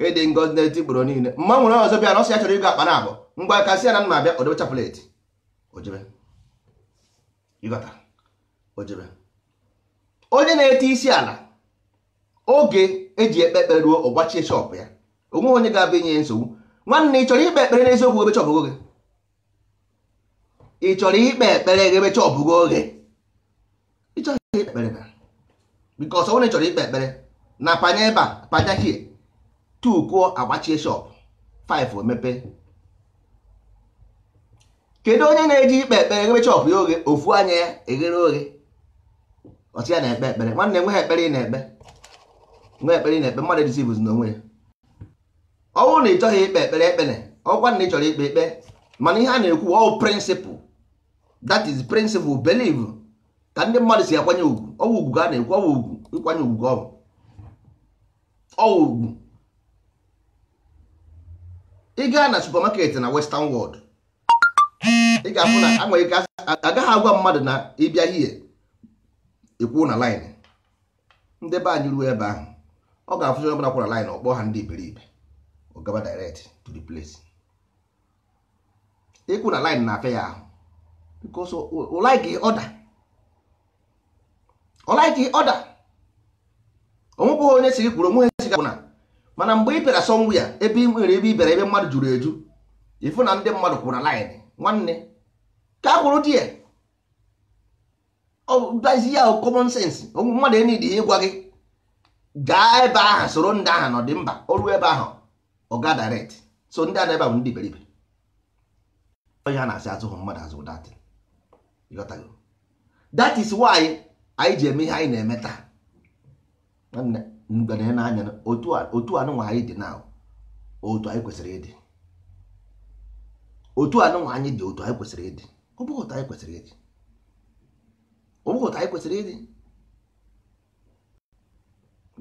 ịdị ngozi na-eti gboro niile mma nwere ọzọ bịa na ọsị ya chọrọ ịgo akpa na abụọ ngwa kasị ya na nna abịa odebe chapụletị ojebe ịghọta ojebe onye na-eti isi ala oge eji ekpe ekpere ruo ọgbachie shọpụ ya onweghị onye ga-abịa inye nsogbu nwanne ị chọrọ ikpe ekpere n'eziokwu ebe chọpụgo gị ị chọrọ ikpe ekpere gị ebe gị oge ịchọghị ikpe ekpere na bikọs onye chọrọ ikpe ekpere na panye ebe a panya hie 2 kwụọ agbachie shop 5 emepe kedu onye na-eji ikpe ekpere eghere chọpụ ya oghe ofu anya ya eghere oghe ọtị ya na-ekpe ekpere nwanne nwe ha ekpere ị na-ekpe nwe ekpere ị na-ekpe mmadụ edizi bụzi n'onwe ya ọ bụrụ na ị chọghị ikpe ekpere ekpere ọkwa na ị chọrọ ikpe ekpe mana ihe a na-ekwu ọwụ prịnsịpụl dat is prịnsịpụl beliv ka ndị mmadụ si akwanye ugwu ọwụ ugwu ka a na-ekwu ọwụ ugwu ịkwanye ugwu ọwụ ọwụ ugwu ị gaa na supermarket na western world ị ga-afụ na anwere ike agaghị agwa mmadụ na ịbịa hie ikwu na line ndị be anyị ruo ebe ahụ ọ ga-afụzi onye ọbụla kwara line ọkpọ ha ndị iberibe ọ gaba direct to the place ịkwụ na line na-afịa ya ahụ because ọ like order ọ like order onwebụghị onye siri kwuru onwe ha si gị na mana mgbe ị bịara ya ebe ị nwere ebe ị bịara ebe mmadụ juru eju ịfụ na ndị mmadụ kwụrụ na line nwanne ka a kwụrụ di ya ọdazi ya common sense mmadụ enidi ya ịgwa gị gaa ebe ahụ soro ndị ahụ nọ dị mba oru ebe ahụ ọga direct so ndị ana ebe ahụ ndị iberibe onye a na-asị azụhụ mmadụ azụ that is why anyị ji eme ihe anyị na-eme taa nwanne mgbe na-anya otu anụnwa anyị dị na otu anyị kwesịrị ịdị otu anụnwa anyị dị otu anyị kwesịrị ịdị ọ bụghị anyị kwesịrị ịdị ọ bụghị anyị kwesịrị ịdị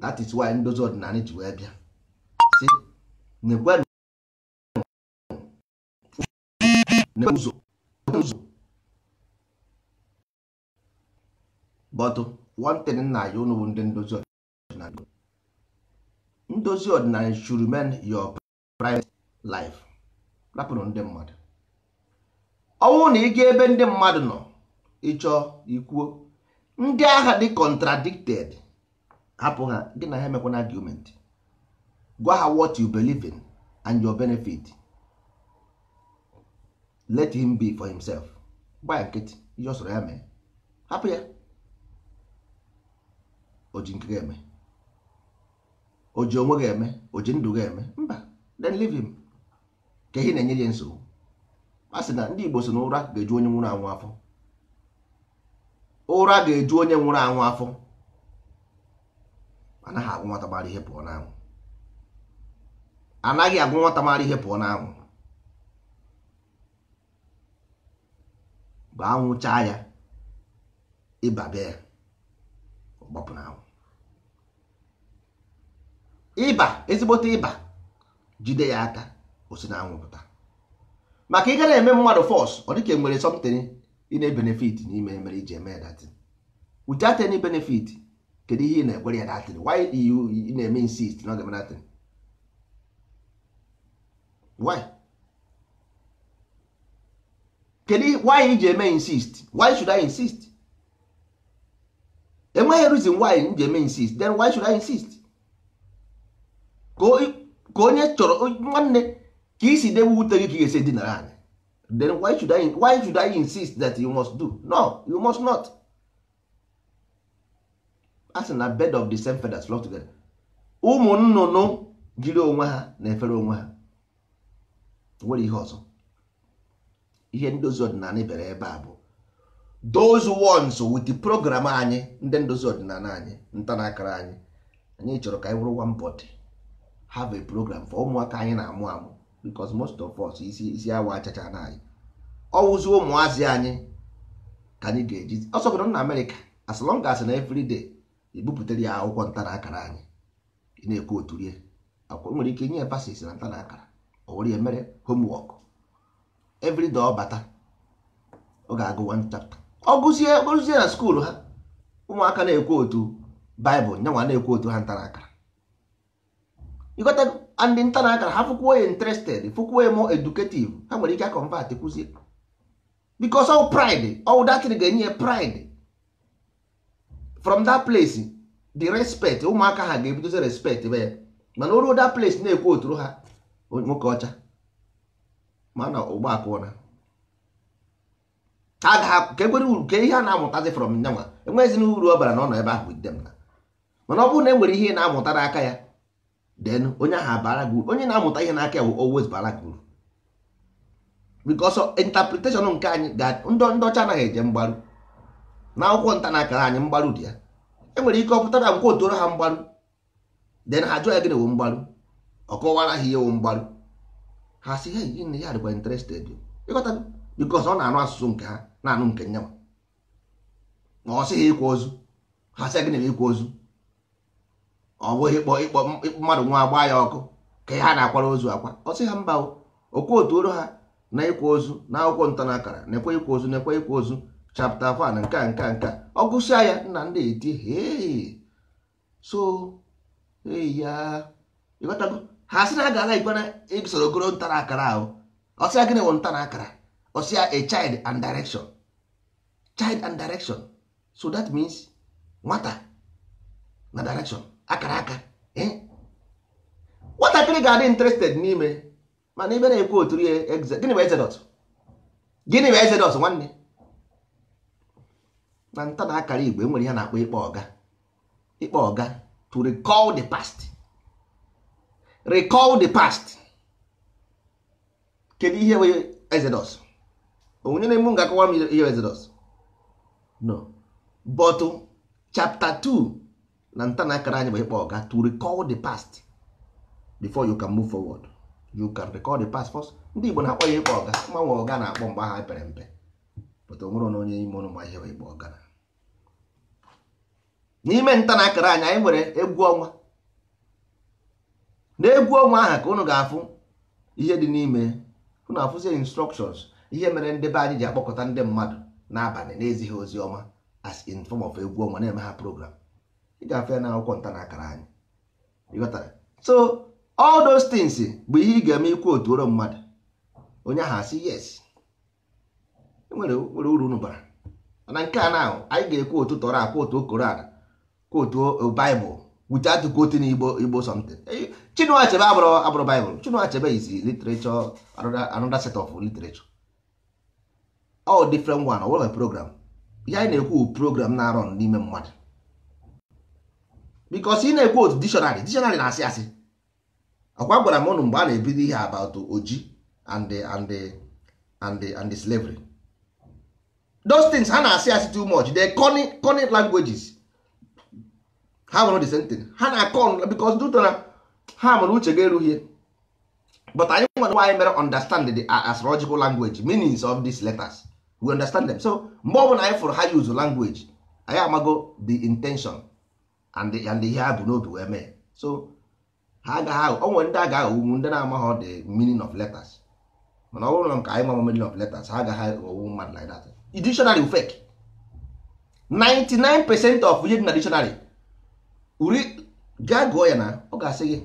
that is why ndozi ọdịnala ji wee bịa si nekwenụ ụzọ ụzọ bọtụ one thing nna ya ụnụ bụ ndị ndozi ndozi ọdịnala should remain your private life rapụrụ ndị mmadụ ọnwụ na ịga ebe ndị mmadụ nọ ịchọ ikwuo ndị agha dị contradicted hapụ ha gị na ha emekwana argument gwa ha what you believe in and your benefit let him be for himself gbaa nkịtị ihe ọ sọrọ ya mee hapụ ya o ji eme o ji onwe ga-eme o ji ndụ ga-eme mba then leave him ka ihe na-enye ya nsogbu a sị na ndị Igbo si na ụra ga-eju onye nwụrụ anwụ afọ ụra ga-eju onye nwụrụ anwụ afọ anaghị agwụ nwata mara ihe pụọ n'anwụ anaghị agwụ nwata mara ihe pụọ n'anwụ mgbe anwụ chaa ya ịba bịa ya ọ gbapụ n'anwụ ịba ezigbote ịba jide ya aka osi na anwụpụta maka ị gara eme mmadụ fọs ọ dịka e nwere something ị na-ebenefit n'ime mere iji eme datin without any benefit kedu ihe ị na-ekwere ya datin why you ị na-eme insist na ọ ga-eme datin why kedu why iji eme insist why should I insist enweghị reason why m ji eme insist then why should I insist ka onye chọrọ nwanne ka isi debe ute gị ka ị ga-esi dinara anyị then why should I, why should I insist that you must do no you must not a si na bed of the same feathers flock together ụmụ nnụnụ jiri onwe ha na-efere onwe ha nwere ihe ọzọ ihe ndozi ọdịnala bere ebe a bụ those ones with the program anyị ndị ndozi ọdịnala anyị ntanakara anyị anyị chọrọ ka anyị wụrụ one body have a program for ụmụaka anyị na-amụ amụ because most of us isi isi awa achacha na anyị ọwụzi ụmụazị anyị ka anyị ga-eji ọsọgodo na amerịka as long as na everyday ebupụtara ya akwụkwọ ntara akara anyị na-ekwu otu rie akwụkwọ nwere ike nye pasis na ntara akara o ya mere homework everyday ọ bata ọ ga-agụ one chapter ọ gụzie gụzie na skuulu ha ụmụaka na-ekwu otu baịbụl nyanwa na-ekwu otu ha ntara akara ịgọtago and nta na akara ha fụkwuo ya interested fụkwuo ya more educative ha nwere ike akọmvat kụzie because all pride all that ga-enye pride from that place the respect ụmụaka ha ga-ebidozi respect be ya mana oruo that place na-ekwu oturu ha nwoke ọcha mana ụgbọ akụna ha ga ka ekwere uru ka ihe a na-amụtazi from nyanwa enweghịzi uru ọ bara na ọ nọ ebe ahụ dem na mana ọ bụrụ na e nwere ihe na-amụta n'aka ya then onye ahụ abara gị onye na-amụta ihe n'aka bụ always bara gị uru because interpretation nke anyị ndị ọcha anaghị eje mgbaru na akwụkwọ nta na-akara anyị mgbaru dị ya enwere ike ọ pụtara nkwa otoro ha mgbaru Den ha jụọ ya gịnị wụ mgbaru ọ kọwara ha ihe wụ mgbaru ha si ha yi ya dịkwa interested ịghọta because ọ na-anụ asụsụ nke ha na-anụ nke nyanwa ma ọ sị ịkwa ozu ha sị ya gịnị ịkwa ozu ọ bụghị ịkpọ mmadụ nwa agba ya ọkụ ka ha na-akwara ozu akwa ọ sị ha mba okwu otu ha na ịkwa ozu na akwụkwọ ntanakara na-ekwe ịkwa ozu na-ekwe ịkwa ozu chapta fan nke a nke a nke a ọ gụsịa ya nna ndị eti so ya ịghọtago ha sị na a gara ikwe na isoro ogoro ntara akara ahụ ọsịa gịnị wụ ntara akara ọsịa a child and direction child and direction so that means nwata na direction akara aka e? nwatakịrị ga-adị interested n'ime mana ibe na-ekwu otu gịnị bụ exodus gịnị bụ exodus nwanne na nta na akara igbo enwere ya na-akpọ ịkpọ ọga ịkpọ ọga to recall the past recall the past kedu ihe bụ exodus onye na-emu ga-akọwa m ihe exodus no but chapter 2 na nta na akara anyị bụ ịkpọ ọga to recall the past before you can move forward you can recall the past first ndị Igbo na-akpọ ya ịkpọ ọga mgbanwe ọga na-akpọ mgbe aha pere mpe pụta onwere na onye ime ụlọ ma ịkpọ ọga n'ime nta na akara anyị anyị nwere egwu ọnwa N'egwu e egwu ọnwa aha ka unu ga-afụ ihe dị n'ime unu afụzie instructions ihe mere ndị be anyị ji akpọkọta ndị mmadụ n'abalị na-ezighị ozi ọma as in form of egwu ọnwa na-eme ha program ị ga-afịa na akwụkwọ nta na akara anyị so all those things bụ ihe ị ga-eme ikwu otu mmadụ onye ahụ asị yes e nwere uru unu bara nke a na anyị ga-ekwu otu tọrọ akwa otu koran kwa otu baịbụl wute atụkoti n'igbo igbo something Chinua Achebe abụrụ abụrụ baịbụl Chinua Achebe izi literature another set of literature all different one o nwere program ihe anyị na-ekwu program na-arọ n'ime mmadụ because ị na-ekwu otu dictionary dictionary na-asị asị ọkwa gwara m ụnụ mgbe a na-ebido ihe about oji and the, and and the, and slavery those things ha na-asị asị too much they conny conny languages ha nwere the same thing ha na because duto na ha mụrụ uche ga but anyị nwere nwaanyị mere understand the astrological language meanings of these letters we understand them so mgbe ọ bụla anyị fụrụ ha use language anyị amago the intention and ihe ha bụ n'obi wee mee so ha agaghị o nwere ndị a ga-aghọgbu ndị na-amaghị the meaning of letters mana ọ bụrụ na nke anyị mama meaning of letters ha agaghị aghọgbu mmadụ like that dictionary fake 99 percent of ihe dị na dictionary uri gaa gụọ ya na ọ ga-asị gị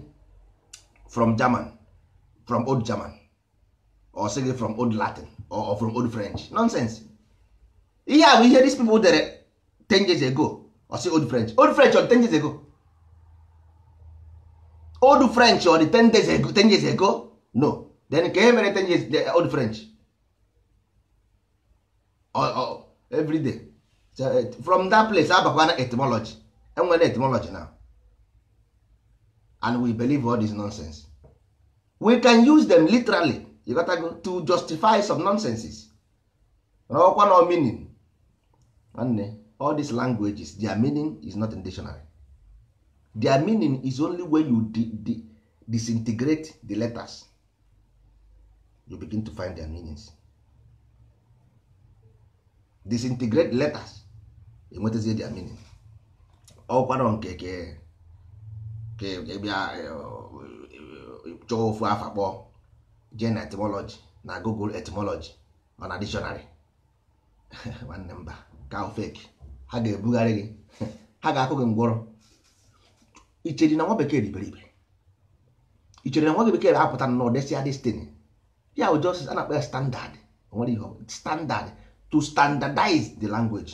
from German from old German or sị gị from old Latin or from old French nonsense ihe a bụ ihe these people dere 10 years ago I say old french old french on 10 years ago old french on 10 days ago 10 years ago no then ka e mere 10 years old french oh, oh, so, eh, from that place abakwana etymology enwere etymology now and we believe all this nonsense we can use them literally you gotta to justify some nonsenses ọkwa no meaning nwanne all these languages their meaning is not in dictionary their meaning is only when you di di disintegrate the letters you begin to find their meanings disintegrate letters enwetazie their meaning ọkwara nke ke bịa e, e, chọọ ofu afa kpọọ jee na etymology na google etymology ọ na dictionary (laughs) nwanne mba ka fake ha ga-ebugharị gị ha ga-akụ gị ngwọrọ icheri na nwa bekee dị iberibe ichere na nwa bekee apụta na ọdesịa destiny ya bụ just a na ya standard nwere ihe standard to standardize the language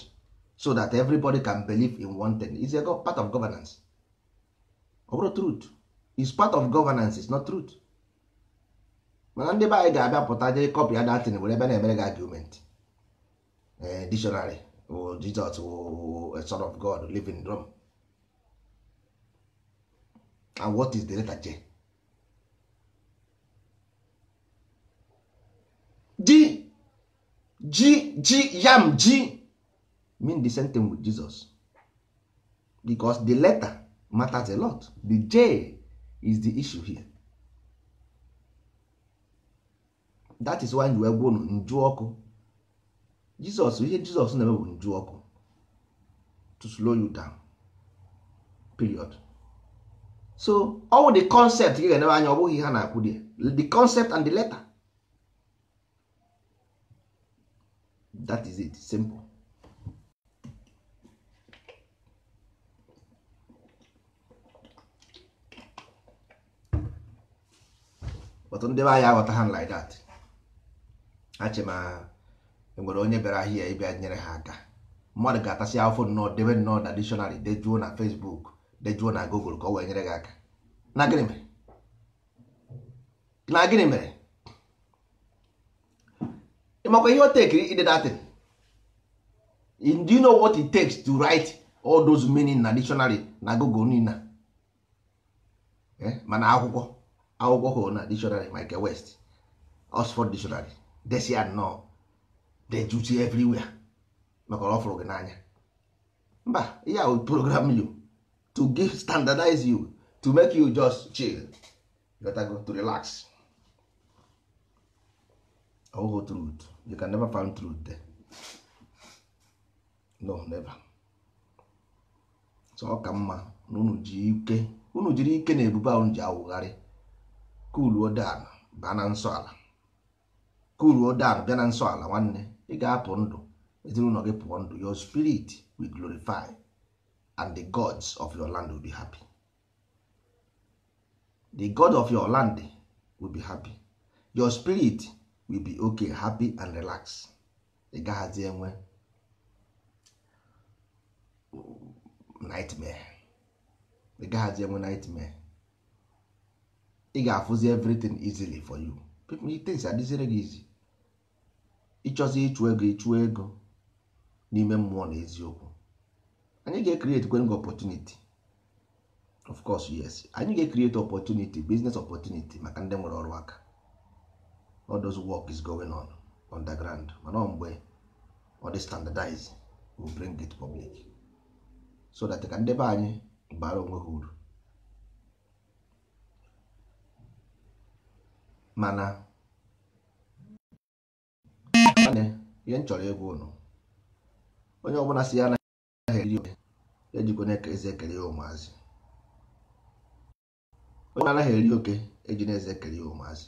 so that everybody can believe in one thing is a part of governance ọ bụrụ truth is part of governance is not truth mana ndị be anyị ga-abịa pụta jee kọpị ya datin were ebe na-emere gị argument eh, dictionary or Jesus or a son of God living in Rome and what is the letter J G G G yam G mean the same thing with Jesus because the letter matters a lot the J is the issue here that is why nju egwu unu nju ọkụ Jizọs ihe Jizọs na-eme bụ nju ọkụ to slow you down period so ọwụ the concept gị ga-enebe anya ọ bụghị ihe ha na-akwụ di the concept and the letter that is it simple but ndị be anyị aghọta ha like that achị ma enwere onye bịara ahịa ịbịa nyere ha aka mmadụ ga-atasị afọ nnọọ debe nnọọ na dictionary dejuo na Facebook dejuo na Google ka ọ wee nyere gị aka na gịnị mere na gịnị mere ịmakwa ihe o tekiri ide datin do you know what it takes to write all those meaning na dictionary na Google nina eh, mana akwụkwọ akwụkwọ hụrụ na dictionary Michael West Oxford dictionary desi nnọọ dejuchi everywhere maka ọ fụrụ gị n'anya mba ya will program you to give standardize you to make you just chill go to relax ọhụhụ truth you can never find truth there no never so ọ ka mma na unu ji ike unu jiri ike na ebube ahụ ji awụgharị kuluo dan bịa na nsọ ala kuluo dan bịa na nsọ ala nwanne ị ga-apụ ndụ ezinụlọ gị pụọ ndụ your spirit will glorify and the gods of your land will be happy the god of your land will be happy your spirit will be okay happy and relax ị gaghazi enwe nightmare ị gaghazi enwe nightmare ị ga-afụzi everything easily for you people things adịzire gị easy ịchọzi ịchụ ego ịchụ ego n'ime mmụọ na eziokwu anyị ga-ecreate kwenga opportunity of course yes anyị ga-ecreate opportunity business opportunity maka ndị nwere ọrụ aka all those work is going on underground mana ọ mgbe ọ dị standardize we bring it public so that ka ndị be anyị bara onwe ha uru mana ihe m chọrọ ịgwa ụnụ onye ọbụla si ya anaghị eri oke ejikwa na eze ekele ya ụmụazị onye anaghị eri oke eji na eze ekele ya ụmụazị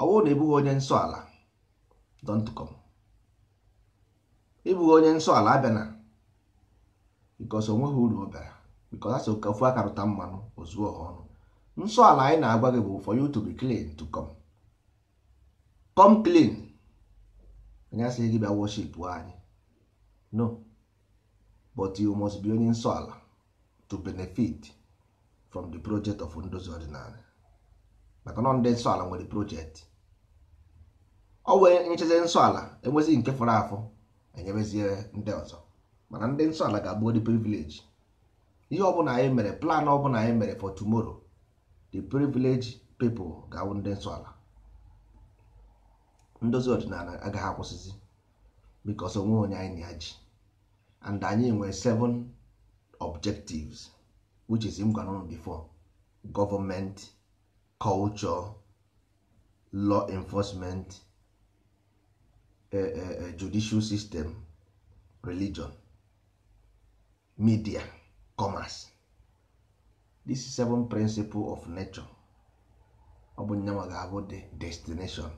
ọ bụrụ na ịbụghị onye nsọ ala dọntụkọm ịbụghị onye nsọ ala abịana bikos o nweghị uru ọ bịara bikos asị ka ofu aka rụta mmanụ ozuo ha ọnụ nsọ ala anyị na-agwa gị bụ for you to be clean to come come clean anyị asịghị gị bịa worship anyị no but you must be onye nsọ ala to benefit from the project of ndozi ordinary maka nọ ndị nsọ ala nwere project ọ wee nyechazi nsọ ala enwezi nke fọrọ afọ enyebezie ndị ọzọ mana ndị nsọ ala ga-abụ the privilege ihe ọbụla anyị mere plan ọbụla anyị mere for tomorrow the privilege people ga-awụ ndị nsọ ala ndozi ọdịnala agaghị akwụsịzi because onwe onye anyị na ya ji and anyị nwere seven objectives which is m gwara before government culture law enforcement eh, eh, eh, judicial system religion media commerce this is seven principle of nature ọ bụ ga-abụ the destination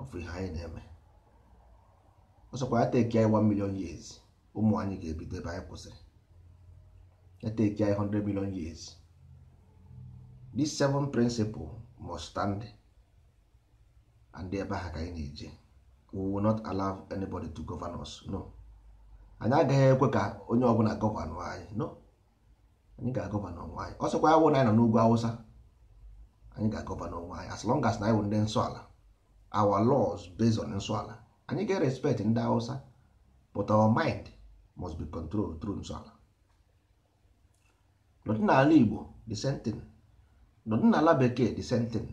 ọfụ ihe anyị na-eme ọsọkwa ya teki anyị 1 million years ụmụ anyị ga-ebido ebe anyị kwụsịrị ya teki anyị 100 million years these seven principles must stand and ebe ha ka anyị na-eje we will not allow anybody to govern us no anyị agaghị ekwe ka onye ọbụla gọvanọ anyị no anyị ga-agọvanọ onwe anyị ọsọkwa ya wụ na anyị nọ n'ugwu awụsa anyị ga-agọvanọ onwe anyị as long as na anyị wụ ndị nsọ ala our laws based on nsọala anyị ga respect ndị hausa but our mind must be controlled through nsọala n'ọdịnala igbo the same thing n'ọdịnala bekee the same thing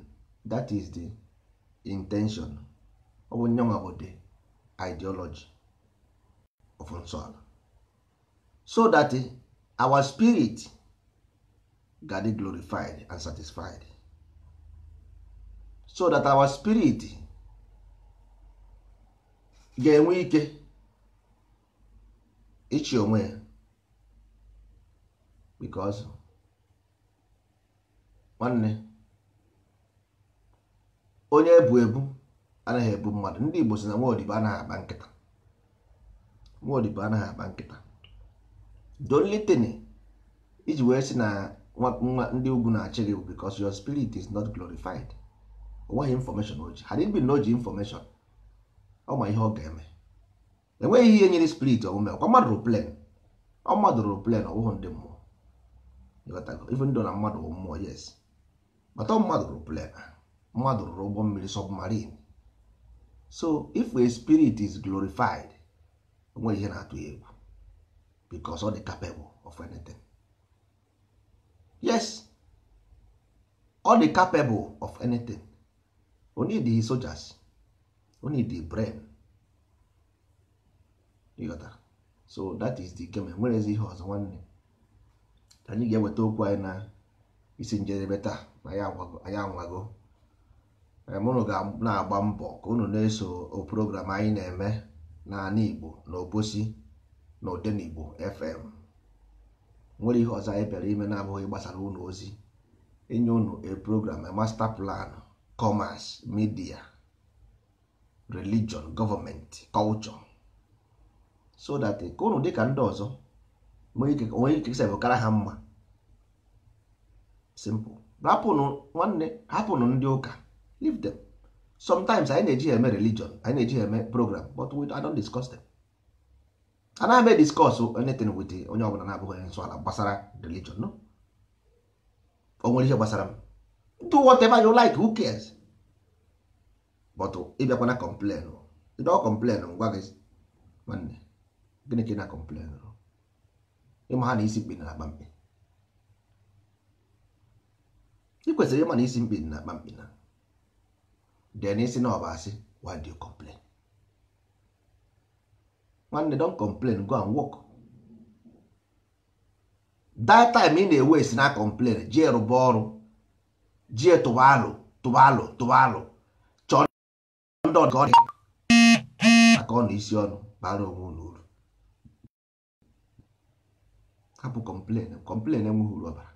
that is the intention of bụ bụ the ideology of nsọala so that eh, our spirit ga glorified and satisfied so that our spirit ga-enwe ike ịchị onwe ya because nwanne onye ebu ebu anaghị ebu mmadụ ndị Igbo si na nwaodibo anaghị akpa nkịta nwaodibo anaghị akpa nkịta dolitini iji wee sị na nwa ndị ugwu na-achị gị because your spirit is not glorified ọ nweghị information o ji ha dịbi na o ji ọ ma ihe ọ ga-eme enweghị ihe nyere spirit omume ọkwa mmadụ rụ plen ọ mmadụ rụ plen ọ bụghị ndị mmụọ ndị na mmadụ bụ mmụọ yes bata mmadụ rụ plen mmadụ rụrụ ụgbọ mmiri submarine so if a spirit is glorified onweghị ihe na-atụ ya egwu because ọ dị capable of anything yes ọ dị capable of anything onye dị sojas. we need the brain ịghọtara so that is the game ezi ihe ọzọ nwanne anyị ga-eweta okwu anyị na isi njedebe taa na anyị anwago mụnụ ga na-agba mbọ ka unu na-eso oprogram anyị na-eme n'ala eh? Igbo na Obosi na Odenigbo FM nwere ihe ọzọ anyị bịara ime na-abụghị gbasara ụlọ ozi enye unu a program a master plan commerce media religion government culture so that eh, ka ụnụ dịka ndị ọzọ onwe ikekesa bụ kara ha mma simple hapụnụ nwanne hapụnụ ndị ụka leave them sometimes anyị na-eji eme religion anyị na-eji eme program but we don't discuss them na m discuss anything with onye ọbụla na-abụghị onye nsọ ala gbasara religion no o nwere ihe gbasara m do whatever you like who cares but oh, ịbịakwana kọmplen oh. ịdọ kọmplen ngwa oh, gị nwanne gịnị ka ị na-kọmplen ịma ha na isi mkpi na akpa mkpi ị kwesịrị ịma na isi mkpi na akpa mkpi na den isi na ọba asị why do you complain nwanne don complain go and work that time ị na-ewe esi na complain ji rụba ọrụ ji tụba alụ tụba alụ tụba alụ ka ọ dị maka ọ na isi ọnụ bara onwe ụlọ uru hapụ kọmplen kọmplen enweghị uru ọbara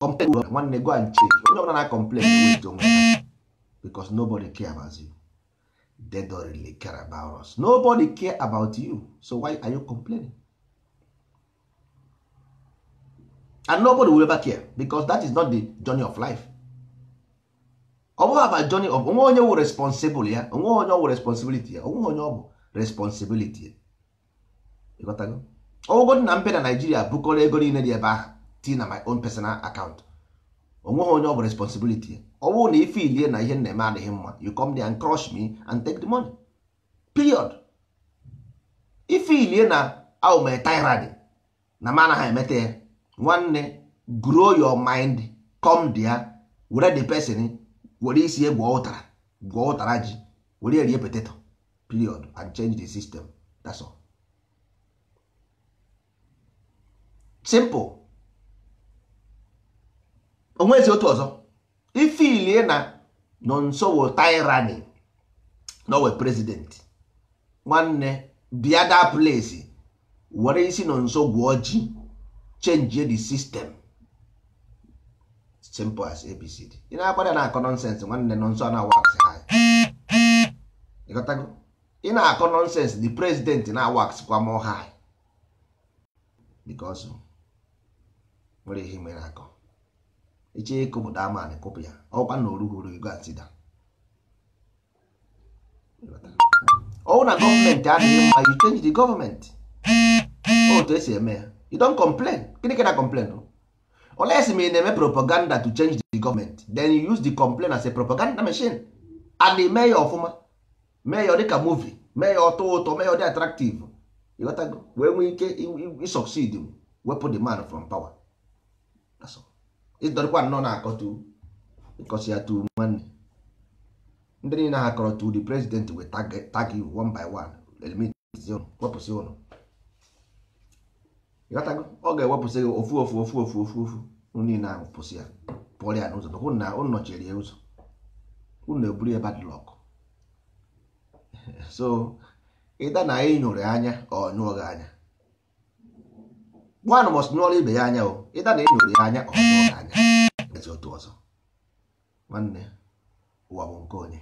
kọmplen uru nwanne go and check onye ọbụla na kọmplen wet onwe because nobody care about you they don't really care about us nobody care about you so why are you complaining and nobody will ever care because that is not the journey of life ọbụghị aba joni of onwe onye wụ responsibụl ya onwe onye ọwụ responsibility ya onwe onye ọ bụ responsibility ya ịghọtago ọgwụgod na mbe na naijiria bụkọrọ ego niile dị ebe ahụ ti na my own personal account onweghị onye ọ bụ responsibility ya ọ bụrụ na ife ilie na ihe na-eme adịghị mma you come there and crush me and take the money period ife ilie na aume tirade na mana ha emeta ya nwanne grow your mind come there were the person were isi ye gwọọ ụtara gwọọ ụtara ji were erie poteto period and change the system that's all simple onwezi otu ọzọ ifilie na nsogbu tyranny nowe president nwanne biada place were isi nonso gwụọ ji change the system simple as abcd ị na na-akọ nọnsensị nwanne nọnsọ a na-awa aksị ha ị na-akọ nọnsensị the president na-awa kwa mọ ha bikos nwere ihe mere akọ iche ịkụ bụ daman ya ọkwa na oruhuru ego atida ọwụ na gọọmenti adịghị mma you change the gọọmenti otu esi eme ya you don complain gịnị ka na complain o unless ma ị na-eme propaganda to change the government then you use the complaint as a propaganda machine and mee ya ọfụma mee ya dịka movie mee ya ọtọ ụtọ mee ya dị attractive ịghọtago wee nwee ike succeed wepụ the man from power ịdọrịkwa nnọọ na-akọtu ịkọsi ya tu nwanne ndị niile ha kọrọ the president wee tag you one by one eliminate wepụsị ụnụ ịghọtago ọ ga-ewepụsị gị ofu ofu ofu ofu ofu ofu niile ahụ pụsị ya pụọrọ ya n'ụzọ hụ na ụnụ nọchiri ya ụzọ ụnụ eburu ya badlọkụ. (laughs) so ịda na anyị nyụrụ anya ọ nyụọ gị anya nwanụ mọs nyụọrọ ibe ya anya o ịda na ịnyụrụ ya anya ọ nyụọ anya ezi otu ọzọ nwanne ụwa bụ nke onye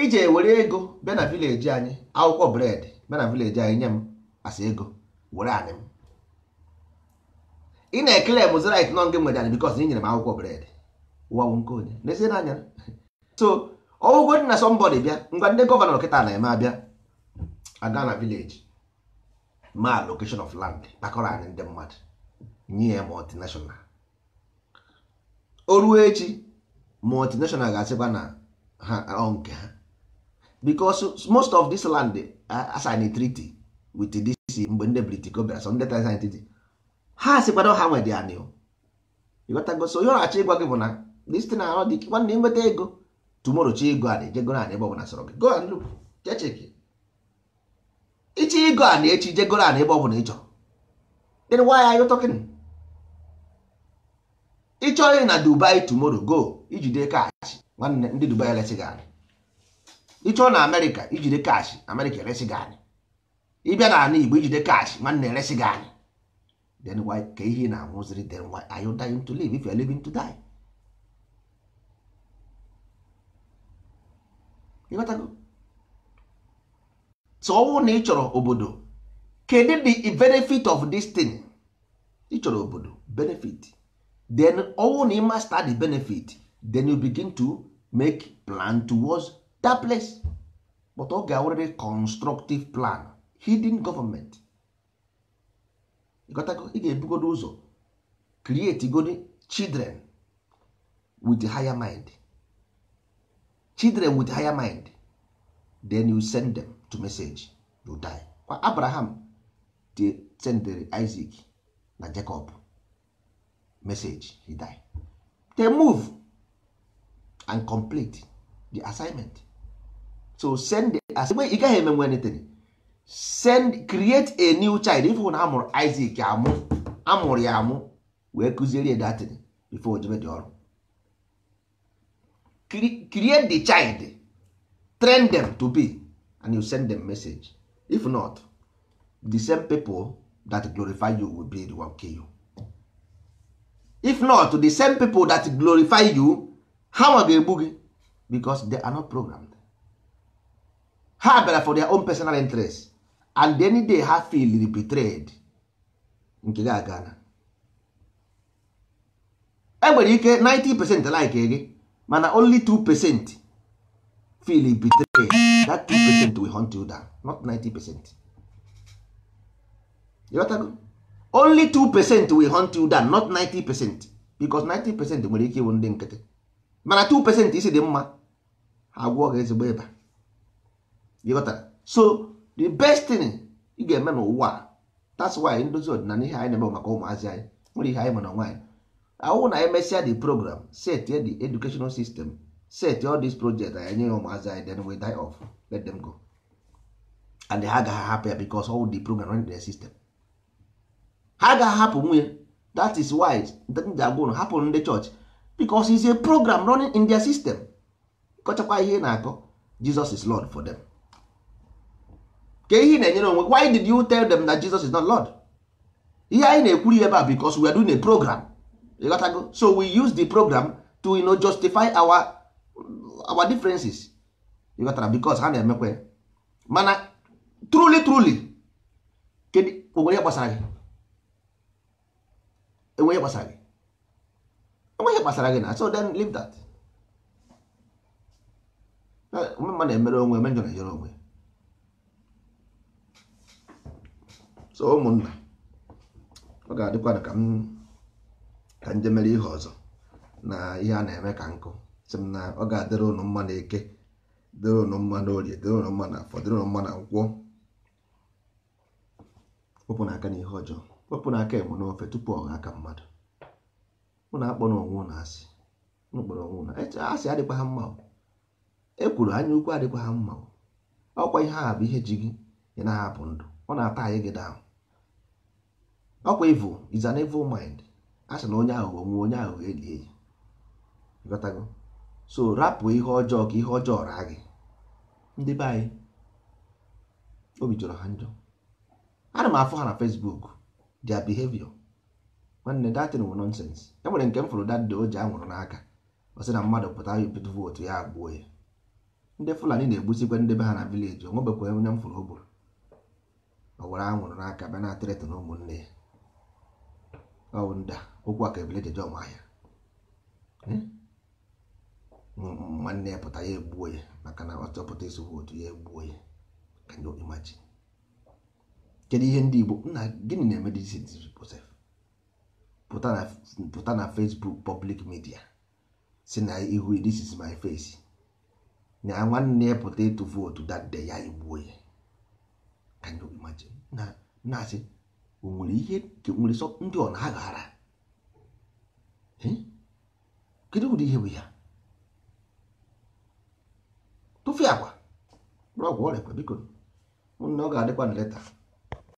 ije ewere ego bịa na vileji anyị akwụkwọ bred bịa na vileji anyị nye m asa ego were anyị m ị na-ekele m zrit nọ nke nwere anyị bikos nyere m akwụkwọ bred ụwa nke onye n'ezie n'anya so ọgwụgwọ dị na sọmbọdị bịa ngwa ndị gọvanọ kịta na-eme abịa aga na vileji maa location of land kpakọrọ anyị ndị mmadụ nye multinational o ruo echi multinational ga-asịkwa na ha nke ha because most of this land assign treaty with this isi mgbe ndị britico bịara sọ ndị ha ha so onye ọrachi ịgwa gị bụ na dịsite na dị nwanne nweta ego tumoro chi ego a na-ejego na ebe ọbụla sọrọ gị go and look ichi ego a na-echi jegoro a na ebe ọbụla ị chọrọ then na dubai go ijide kaachị ndị dubai gị ị na amerịka ijide kaachị amerịka eresi ịbịa n'ala Igbo ijide kash nwanne eresi gị anyị then why ka ihe na-anwụziri then why are you dying to live if you are living to die ịghọtago tụọwụ na ị chọrọ obodo kedu the benefit of this thing ị chọrọ obodo benefit then ọwụ na ị master the benefit then you begin to make plan towards that place but ọ ga-awụrịrị constructive plan hidden government ị ga-ebugodo ụzọ create godi children with higher mind children with higher mind then you send them to message you die kwa abraham de sendere isaac na jacob message he die they move and complete the assignment so send the assignment ị gaghị emenwe anything send create a new child ifụ na amụrụ Isaac amụ amụrụ ya amụ wee kụziere datin before ojebe dị ọrụ create the child train them to be and you send them message if not the same people that glorify you will be the one kill you if not the same people that glorify you ha nwa ga-egbu gị because they are not programmed ha bịara for their own personal interest and any day ha feel betrayed nke gị aga na enwere ike 90% like gị mana only 2% feel betrayed that 2% will hunt you down not 90% ịghọtago only 2% will hunt you down not 90% because 90% nwere ike ịwụ ndị nkịtị mana 2% isi dị mma ha gwụọ gị ezigbo ịba so the best thing ị ga-eme n'ụwa that's why ndozi ọdịnala ihe anyị na-eme maka ụmụazị anyị nwere ihe anyị ma na nwaanyị ahụ na emesịa the program set the educational system set all these projects anyị nye ya ụmụazị anyị then we die off let them go and ha agaghị hapụ ya because all the program run their system ha agaghị hapụ nwunye that is why ji agwa ụlọ hapụ ndị chọọchị because is a program running in their system kọchakwa ihe na-akọ Jesus is Lord for them. ka ihe na-enyere onwe why did you tell them that Jesus is not Lord ihe anyị na-ekwuru ebe a because we are doing a program ịghọtago so we use the program to you know, justify our our differences ịghọtara because ha na-emekwe mana truly truly kedu onwere ihe gbasara gị enwe ihe gbasara gị enwe ihe gbasara gị na so then leave that mma na-emere onwe eme na-ejere onwe so ụmụnna ọ ga adịkwa ka m ka m mere ihe ọzọ na ihe a na-eme ka nkụ sị m na ọ ga-adịrị ụnụ mma na eke dịrị ụnụ mma na orie dịrị ụnụ mma na afọ dịrị ụnụ mma na nkwọ wepụ na aka na ihe ọjọọ wepụ na aka enwe n'ofe tupu ọ aka mmadụ mụ na-akpọ na na asị mụ kpọrọ onwe na asị adịkwa ha mma e kwuru anya ukwu adịkwa ha mma ọkwa ihe a bụ ihe ji gị ị na-ahapụ ndụ ọ na-ata anyị gị daahụ ọkwa evil is an evil mind a sị na onye aghụghọ nwe onye aghụghọ eli eyi ịghọtago so rapụ ihe ọjọọ ka ihe ọjọọ raa gị ndị be anyị obi jọrọ ha njọ ana m afọ ha na Facebook their behavior nwanne datin wụ e nwere nke m fụrụ dadị o ji anwụrụ n'aka ọ na mmadụ pụta ịpụta vootu ya agbuo ya ndị Fulani na-egbusikwa ndị be ha na vileji o nwebekwa onye m fụrụ o gburu ọ were anwụrụ n'aka bịa na-atịrịtụ na ụmụnne ya awụnda okwu a ka ebele jeje ọma ahịa hmm? nwanne ya pụta ya egbuo ya maka na ọ chọpụta ezigbo otu ya egbuo ya Ka you imagine kedu ihe ndị Igbo nna gịnị na-eme pụta na Facebook public media si na ihu this is my face na nwanne ya pụta ịtụ vootu that day ya egbuo ya Ka you imagine na-asị o nwere ihe nwere sọ ndị ọ na-aghara kedu ụdị ihe bụ ya tụfee agwa bụrụ ọgwụ ọrịa biko na ọ ga-adịkwa na leta